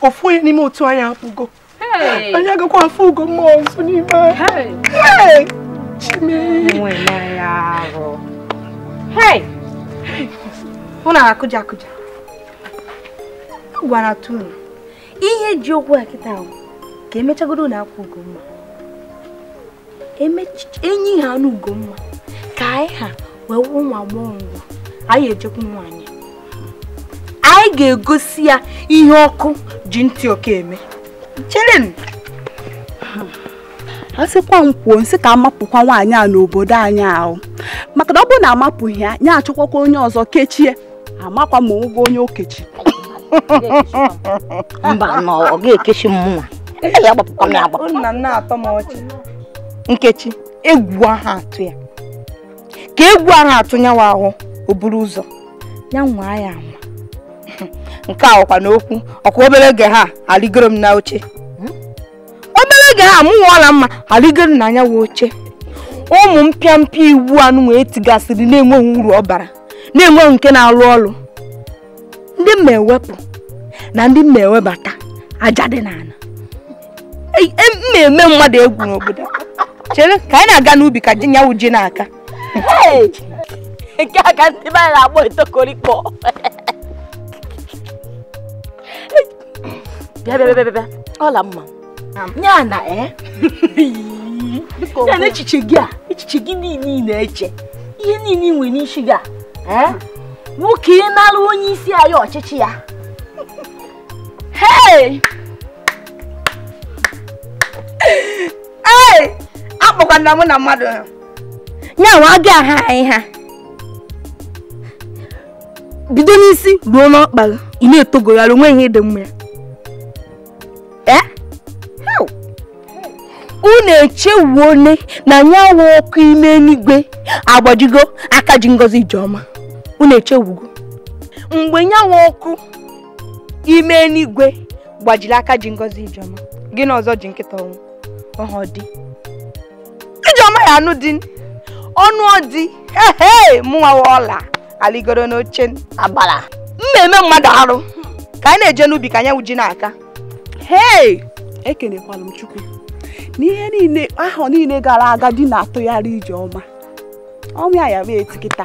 ofu onye n'ime otu anyị apụgo anyị agakwa afụ mma ọzọ n'ime anyị Hey! Hey! Hey! Hey! Hey! Hey! Hey! gwara tunu ihe ji okwu a kịta ahụ ka emechagoro na akwa ugomma e enyi ha na ugomma ka anyị ha wee wụ nwa agbọghọ ngwa anyị ejekwu nwaanyị anyị ga-egosi ya ihe ọkụ ji ntị ọka eme cherenụ a sịkwa m kwuo nsị ka amapụkwa nwaanyị a n'obodo anyị ahụ maka na ọ bụrụ na amapụghị ya ya achọkwakwa onye ọzọ kechie amakwa ma ụgwọ onye okechi mba na ọ ga-ekechi mmụọ mụnwa ya agbapụkwa m ya agbapụ nna nna atọ m ọchị nkechi egwu aha atụ ya ka egwu aha atụ nyawa ahụ o buru ụzọ ya nwa ya ama nke a ọkwa n'okwu ọkwa obere oge ha arịgoro m na oche obere oge ha mụ nwụọla mma m na anyanwụ oche ụmụ mpịampịa iwu anụ wee tigasịrị na-enweghị uru ọ bara na-enweghị nke na-alụ ọrụ ndị m na-ewepụ na ndị m na-ewebata aja dị n'ala e, m eme mmadụ egwu n'obodo chere ka anyị na-aga n'ubi ka nyanwụ ji n'aka nke aka ndị be anyị na-akpọ etokorikpọ bịa bịa bịa bịa ọla mma ya na e. ya na echiche gị a echiche gị niile na-eche ihe niile nwere n'isi gị a e. nwoke ịnara onye isi anyị ọchịchị ya akpọkwana mụ na mmadụ nyanwa aga aha anyị ha bido n'isi ruo n'ọkpara ị na-etogogharị onwe ihe dị mma ee eh? unu echewuone na nyanwa ọkụ ime n'igwe agbajigo aka ji ngozi ọma. unu echegbugo mgbe nyanwa ọkụ ime n'igwe gbajiri aka ji ngozi ijeọma gị na ọzọ ji nkịta ọnwụ ọhọ ijeọma ya anụ dị ọnụ ọdị ehe mụnwawa ọla aligoro n'oche agbara na-eme mmadụ arụ ka anyị na-eje n'ubi ka anyanwụ ji n'aka hei m chukwu n'ihe niile ahụ niile gara aga di na-atụgharị ijeọma ọnwụ ya ya mee etikịta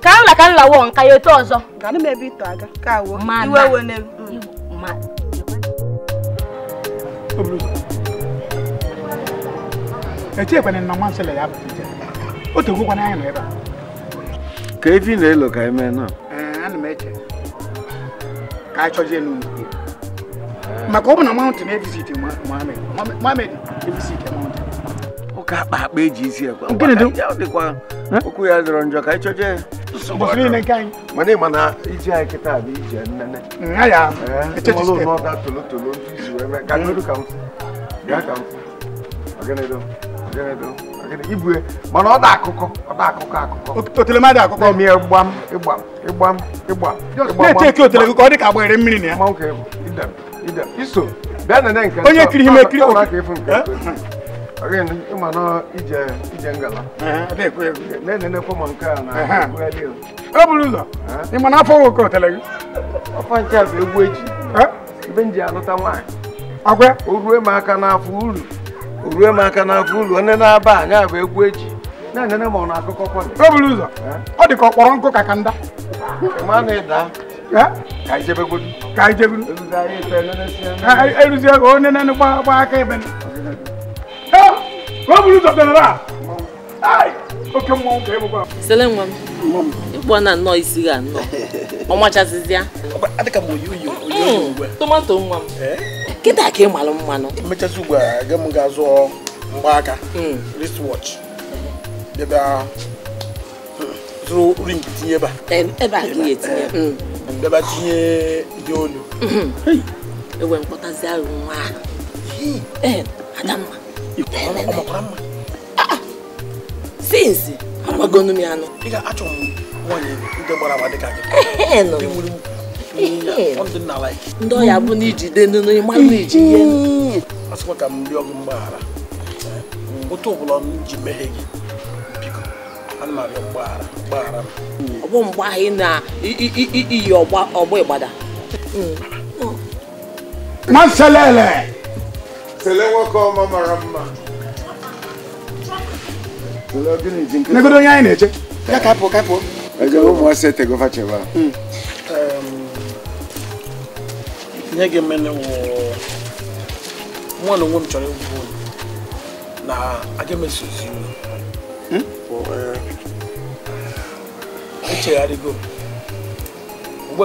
ka m nla wọ nka ya otu ọzọ ganụ m ebe ito ka awụ iwe ewe ya bụ nọ ebe a ka efi na-elo ka eme na ana m eche ka a chọzie maka ọ bụ na mountain evisit Mohammed evisit mountain ụka akpa akpa eji isi ekwe okwu ya dọrọ njọ ka anyị ya Bosini ne mm, kan. Mane mana iji Mana oda akụkọ. Oda akụkọ akụkọ. Otele ma da akụkọ. Mi Onye kiri ime kiri. Ọ ka efu nke again ịma na ije ije ngala na-enenekwa ma nke a na ebugharị ya e buru ụzọ ị ma na afọ nwoke otere gị ọfa nche bụ egwu eji ebe m ji alụta nwaanyị agwa o rue m aka n'afọ uru o rue m aka n'afọ uru onye na-aba anya bụ egwu eji na-enene ma ọ na-akụkọ kwọdị e buru ụzọ ọ dị ka ọ kpọrọ nkụ ka ka nda ma na ịda ka ijebegodu ka ijebegodu eruzie ka onye na-enegba aka ebe Why would you talk to her? Ai! Oke mmụọ nka ịbụkwa. Sele nwa m. Ịkpọ na nnọọ isi ga nnọọ. Ọ machazịzi ya. Adịka m oyi oyi oyi ugbu a. Tomato nwa m. Kịta ka ị malụ mmanụ. Mmechazi ugbu wristwatch. Ebe ring tinye ebe a. Ebe a ka ị ga-etinye. Ebe a tinye dị olu. Ewe mkpọtazi arụ nwa ọmọkùnrin mọ. sinsi amagonu ano. ị ga-achọ m nwanyị ndị gbara agba dịka gị. ndị ọya bụ na ijide nunu ịmalụ na iji ihe. asịkwa ka m rịọ gị mgbaghara otu ọbụla m ji mehie gị biko ana m arịọ mgbaghara mgbaghara m. ọ bụ na iyi ọgbọ ịgbada. Maselele. tele nwoke ọma mara mma negodo onye anyị na-eche ya ka pụọ ka e ụmụasị etegova ihe hmm. ga-emele mụ na onwe m chọrọ egwu ụlọ na aga m hmm? echegharịgo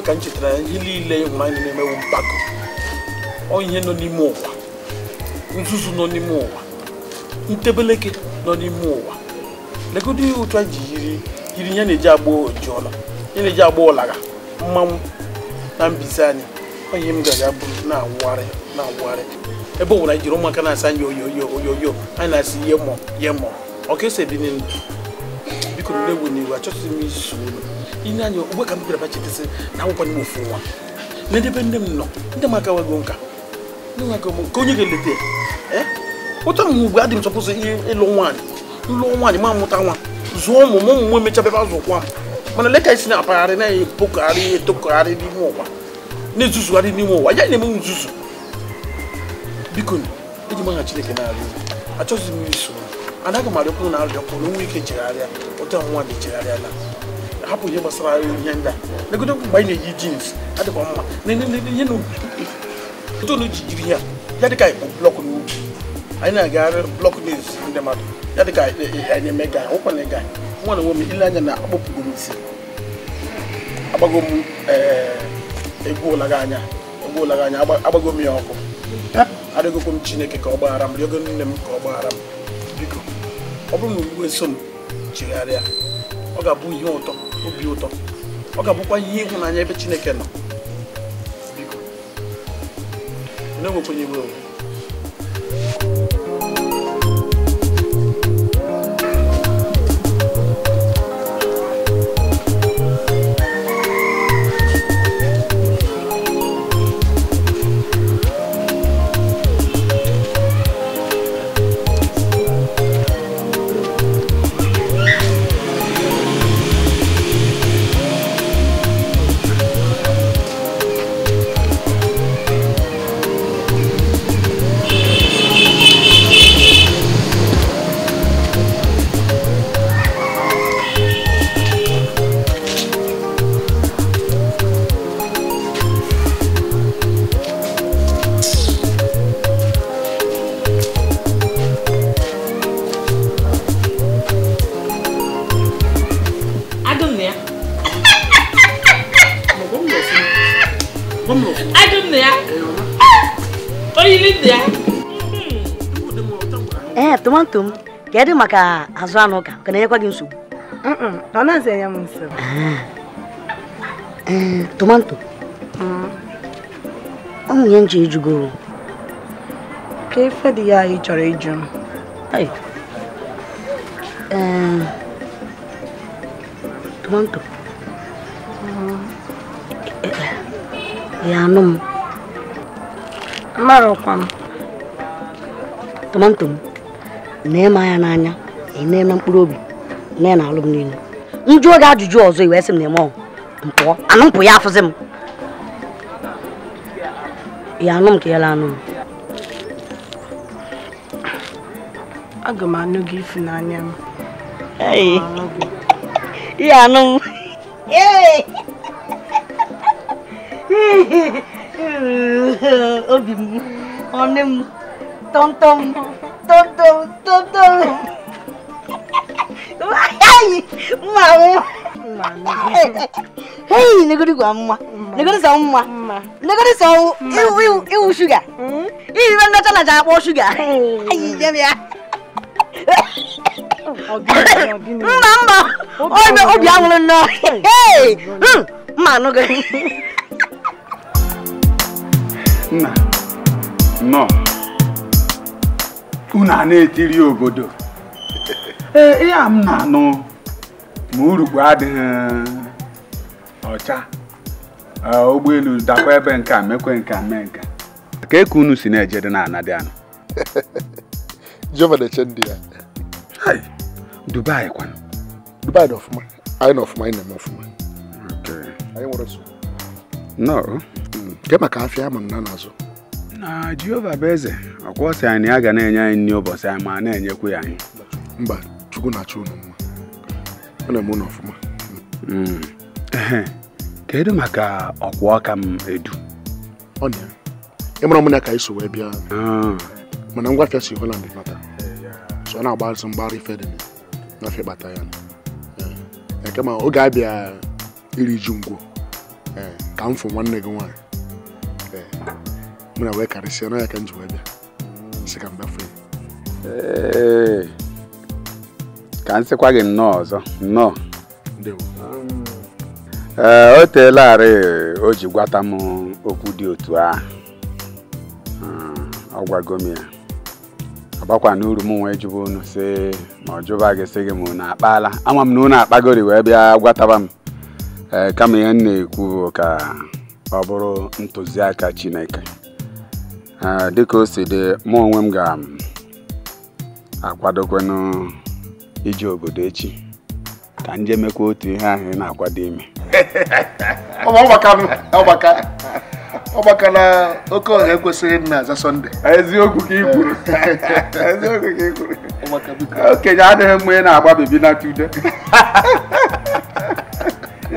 ka m chetara ihe niile ịhụrụ anyị na-emewu mpako ọ nọ n'ime ụwa nzuzu nọ n'ime ụwa ntebeleke nọ n'ime ụwa legodo ihe ụtụ ji yiri ya na-eji agba ojiọla ya na-eji agba ọlagha mmanwụ na mbize anyị onye m ga-aga bụrụ na-awụgharị na-awụgharị ebe ọbụla jiri ụmụaka na-asa anyị oyoyo oyoyo anyị na-asị ihe mọ ihe mọ ọka esi ebi n'elu biko n egwu n'iwu achọtụghị m isu olu ile anya ogbe ka m bịara bachitesị na akwụkwọ n'ime ofu nwa n'edebe nne m nọ ndị m akawago nka ka onye ga-eleta ụta mgbe ugbu adị chọpụzụ ịlụ nwaanyị ịlụ nwaanyị ma mụta nwa zụọ ụmụ m ụmụ nwe mechabebe azụ kwa mana leka isi na-apagharị na-epokọgharị etokọgharị n'ime ụwa na-ezuzugharị n'ime ụwa ya na-eme nzuzu biko eji chineke na a achọghịzi m iso anaghị m arịọkwuru na arịọkwuru nwa ike chegharịa ụta nwaanyị chegharịala hapụ ihe gbasara ihe ndị a legodo mgbe anyị na-eyi jins adịkwa mma ihe n'u jiri ya ya dịka ikpo blọk n'ugwu anyị na-agagharị blọk news ndị mmadụ ya dịka anyị eme ga nwekwana ịga nwa na nwe m ile anya na akpọpụgo m isi agbago m eh, egwu ụlaga anya egwu ụlaga anya agbago m ya ọkụ arịgokwa m chineke ka ọ gbaghara m rịọgo nne m ka ọ gbaghara m biko ọ bụrụ na iwe so m chegharịa ọ ga-abụ ihe ụtọ obi ụtọ ọ ga-abụkwa ihe ịhụnanya ebe chineke nọ одному понівили. nwanto m kedu maka azụ anụ ụka ka na-enyekwa gị nsogbu ọ na-azị anya m nsogbu eh, eh, tomanto ụmụ ihe nche ejugoro ka efe dị ya ị chọrọ ịjụ m eh, tomanto ya anụ m marakwa m tomanto na ịma ya n'anya na na mkpụrụ obi na ya na-alụ m niile njụ oge ajụjụ ọzọ iwee sị m na eme ọgwụ mpụọ anụ mpụ ya afụzi m ya anụ m ka ya anụ m aga m anụ gị ifu n'anya m ihe anụ m obi m ọnụ m tọmtọm tọmtọm tòlótòló mma hei negodi gwa mma negodi sa mma negodi sa unu a na-etiri obodo ee ihe a m na-anụ ma urukpu adịghị um, ọcha e, ụgbọelu dakwa ebe nke a mekwe nke a mee nke ka eku unu si na eje na anadịanụ jehova na-eche ndị ya dubai kwanụ dubai na ọfụma anyị na ọfụma anyị na-eme ọfụma anyị nwere nsogbu nọọ hmm. nke maka afịa ama m na n'azụ na jehova bụ eze ọkwa sị anyị a ga na-enye anyị nri ụbọchị anyị ma na enyekwu ya anyị mba chukwu na-achọ unu mma ọ na-eme unu ọfụma hmm. kedu maka ọkwa ọka m edu ịmara m na ka anyị so wee bịa ah. mana ngwa ngwafịa si holand nata so ọ na-agbazụ mgbara ife dị ngwafịa kpata ya eh, kama oge abịa iri ji ngwo eh, ka m fụ nwanne gị nwaanyị mụ na wee na ya ka m ji wee bịa sị ka m gbafe ka m sịkwa gị nnọọ ọzọ nnọọ ee eh, o teelarị o ji gwata m okwu dị otu a, ah, ọ gwago m ya agbakwa n'uru m nwee jụba unu sị ma ọ jụba gị sị gị ma unu akpala ama m na unu akpagori wee bịa gwataba m ee eh, kama ihe m na-ekwu ka ọ bụrụ ntụziaka Chineke dịka o si dị mụ onwe m ga akwadokwu ije obodo echi ka ndị jee mekwa otu ihe ahụ ị na-akwado ime ọgbaka na oke ọha ekwesịghị nna aza sọnde eziokwu ka kwuru ka kwuru okenye adịghị mma ị na-agba bebi na tude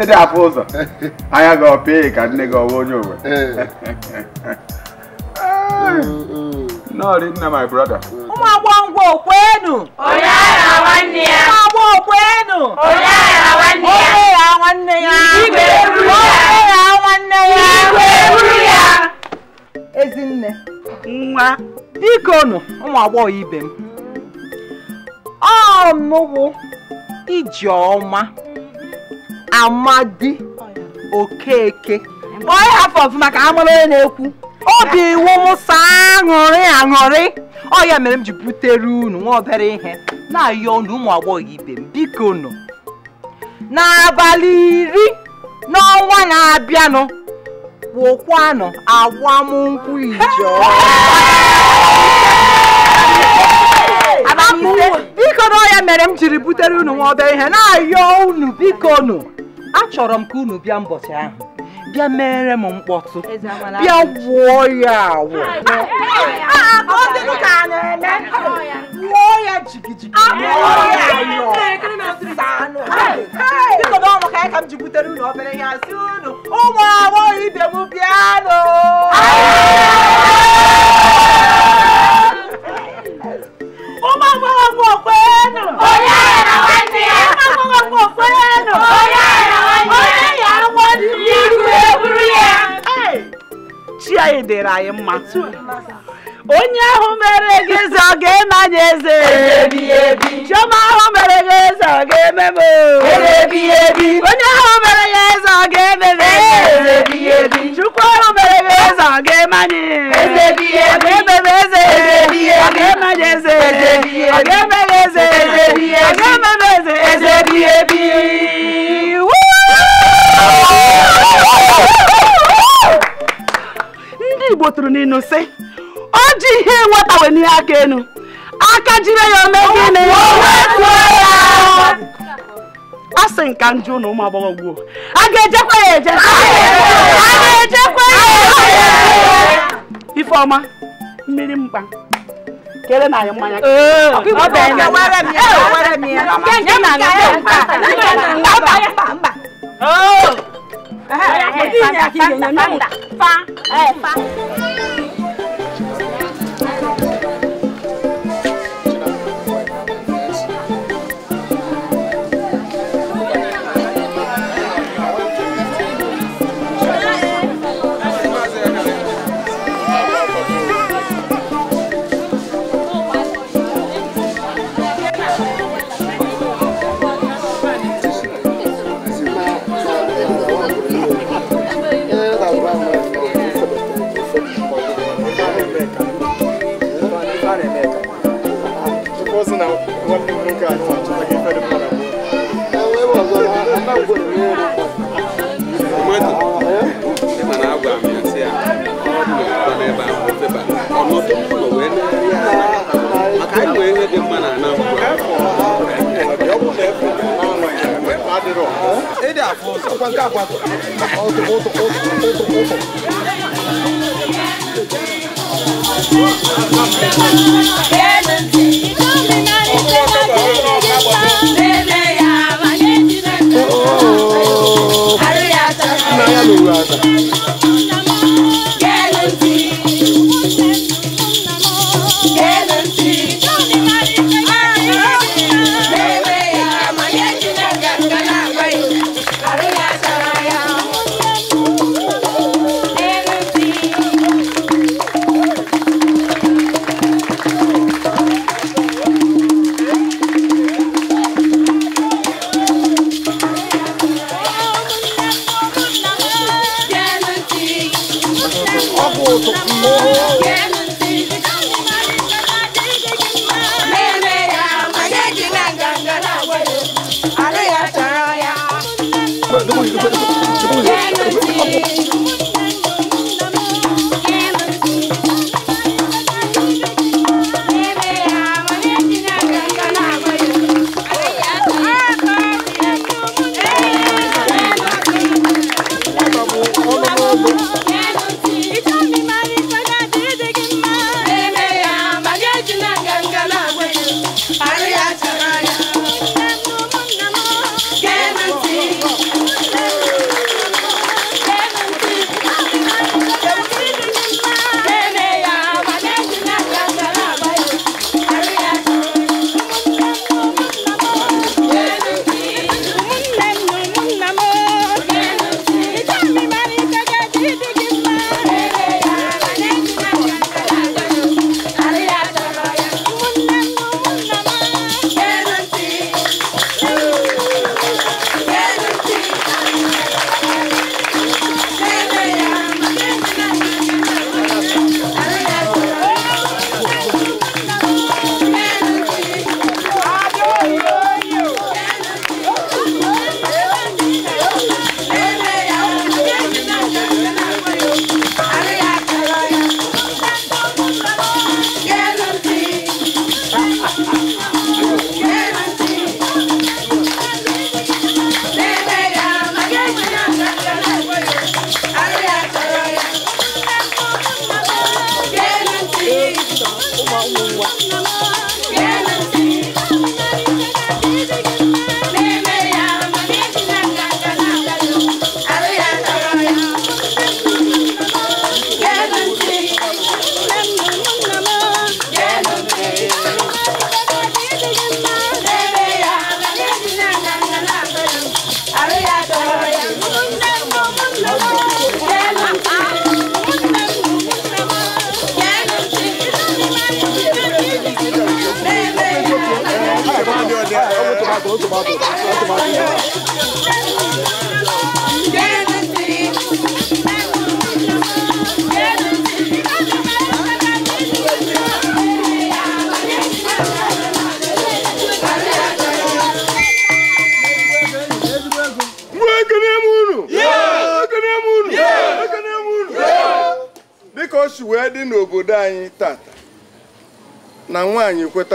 ịdị afọ ụzọ anya gị ọ ka nne gị ọwa onye owe eh. náà rí nna my brother. ó máa wọ ń wo òpó ara wa ya. ó máa wọ òpó ẹnu. ara wa ya. ó lè àwọn ya. ìgbè rú ya. ó lè àwọn ya. ìgbè rú ya. ezinne nwa biko nụ ụmụ agbọghọ ibe m ọnụwụ ijeọma amadi okeke Boy, half of ka amara onye na-ekwu obi wụwụsa aṅụrị aṅụrị ọ ya mere m ji butere unu nwa obere ihe na-ayọ unu ụmụ agbọghọ ibe m biko nụ n'abalị iri n'ọnwa na-abịanụ wụkwanụ agbamnkwụ ijo biko na ọ ya mere m jiri butere unu nwa obere ihe na-ayọ unu biko nụ achọrọ m ka unu bịa mbọchị ahụ bịa mere m mkpọtụ bịa gwụọ ya agwụ gwụọ ya jigijigi biko na ọmụ ka anyị ka m ji ụmụ agbọghọ ibe m bịanụ ụmụ agbọghọ kwenu onye agbọghọ kwenu chi anyị dịrị anyị mma onye ahụ mere gị eze ọ ga-eme eze chioma ahụ mere gị eze ọ ga-eme onye ahụ mere ya eze ọ ga-eme chukwu ahụ mere gị eze ọ ga-eme anyị ọ ga-eme eze ọ ga-eme eze ọ ga-eme m eze ga kpoturu n'inuse o ji ihe nwetawe n'ihe aka enu aka jire ya ome gịnị a sị nka njụ na ụmụ agbọghọ gbuo a ga-ejekwa ya eje a ga-ejekwa ya ifeọma mmiri mkpa kere na anyị mmanya 哎哎，发发发发发！哎发。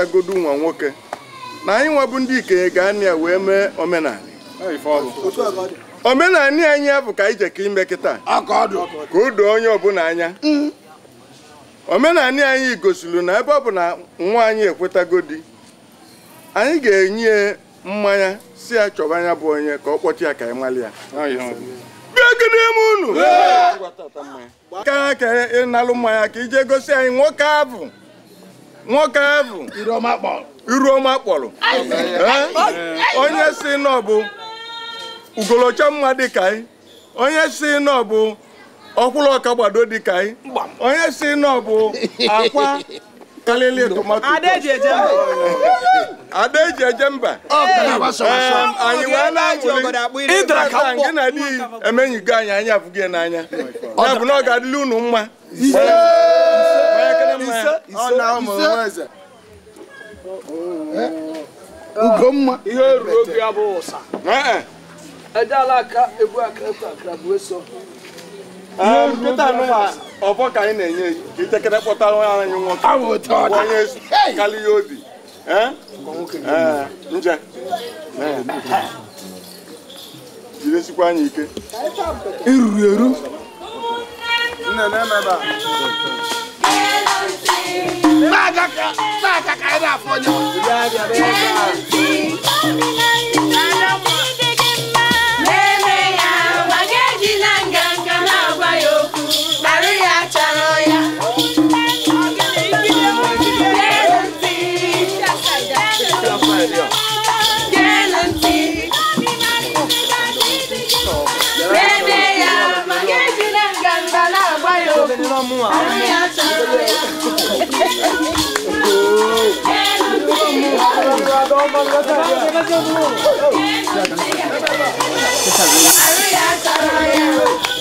ịghọtagodu nwa nwoke na anyị nwabụ ndị ikenye ga-anịa wee mee omenala omenala anyị bụ ka anyị ime kịta ka o doo onye ọbụla anya omenala anyị gosiri na ebe ọ bụ na nwa anyị ekwetago di anyị ga-enye mmanya si ya chọba anya bụ onye ka ọ kpọchi ya ka anyị mali ya bịagodem unu ka ka ịnalụ mmanya ka ije gosi anyị nwoke abụ nwoke bụ iruoma kpọrọ onye si nọ bụ ugolocha mma dịka anyị onye si nọ bụ ọkwụrụ ọka gbado dịka anyị onye si nọ bụ akwa kalili tomato ada eji eje mba anyị wee na-amụli gị na di emenyigo anyị anya gị n'anya ya bụ na ọ ga mma ise oh, eh? mma ihe ruo oge ya bụ ụsa ejeala aka egbu akara ah, bụ eso ọbọ ka anyị na-enye itekere kpọtara nwa anyị eh? nwoke onye karịa obi nje eh, jidesikwa anyị ike iruru eru Sáà kàkà ẹ̀ dà fọ́nyọ́. amo a Vamos lá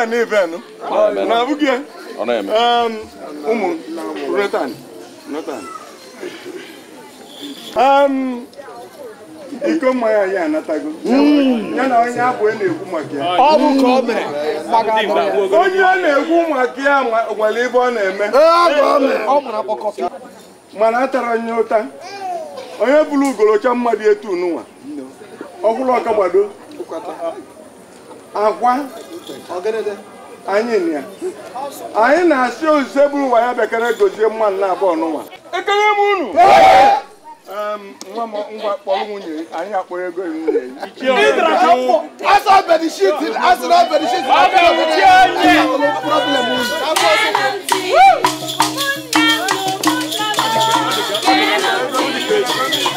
ya na even na abụghị ya ụmụ iko mmanya anatago hmm. ya na onye abụ e na-ekwu maka ya ọ hmm. onye ọ e na-ekwu maka ya nwere ibe ọ na-eme mana a tara onye ụta onye bụrụ ugolocha mmadụ etu n'ụwa ọhụrụ ọkagbado agwa anyị na-asị ozize bụrụ nwa ya bekere gozie mmanụ nna abụọ n'ụwa ekele m unu nwa m ngwa kpọrọ nwunye anyị akpọrọ ego nwunye Thank you.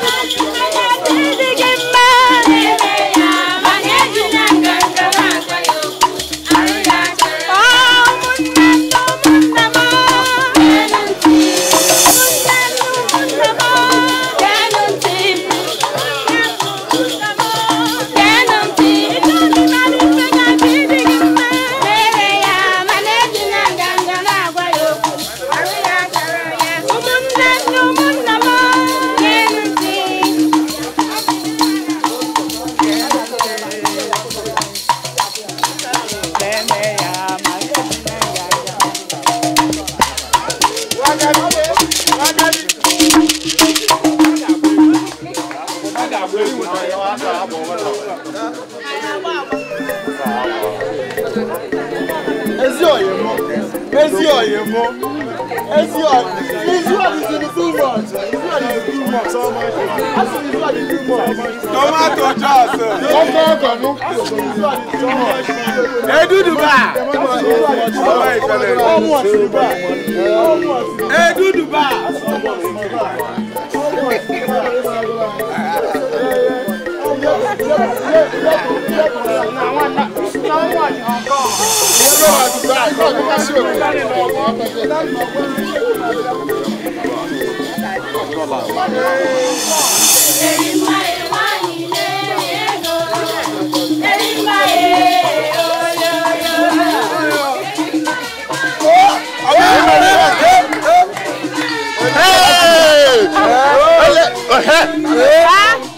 Ezi oye mo. Ezi oye. Ezi oye is in too much. Ezi oye is too much. Asi ezi oye is too much. Tomato juice. Ọkọ ọkọ nu. Eduduba. Ọmọ Sinuba. Eduduba. Ọmọ Sinuba. Èrìmá èrìmá ilé ẹ̀rọ èrìmá èrò yòyò. Àwọn ènìyàn ní ọ̀dọ́. Ẹ̀ẹ́. Ẹ̀ẹ́.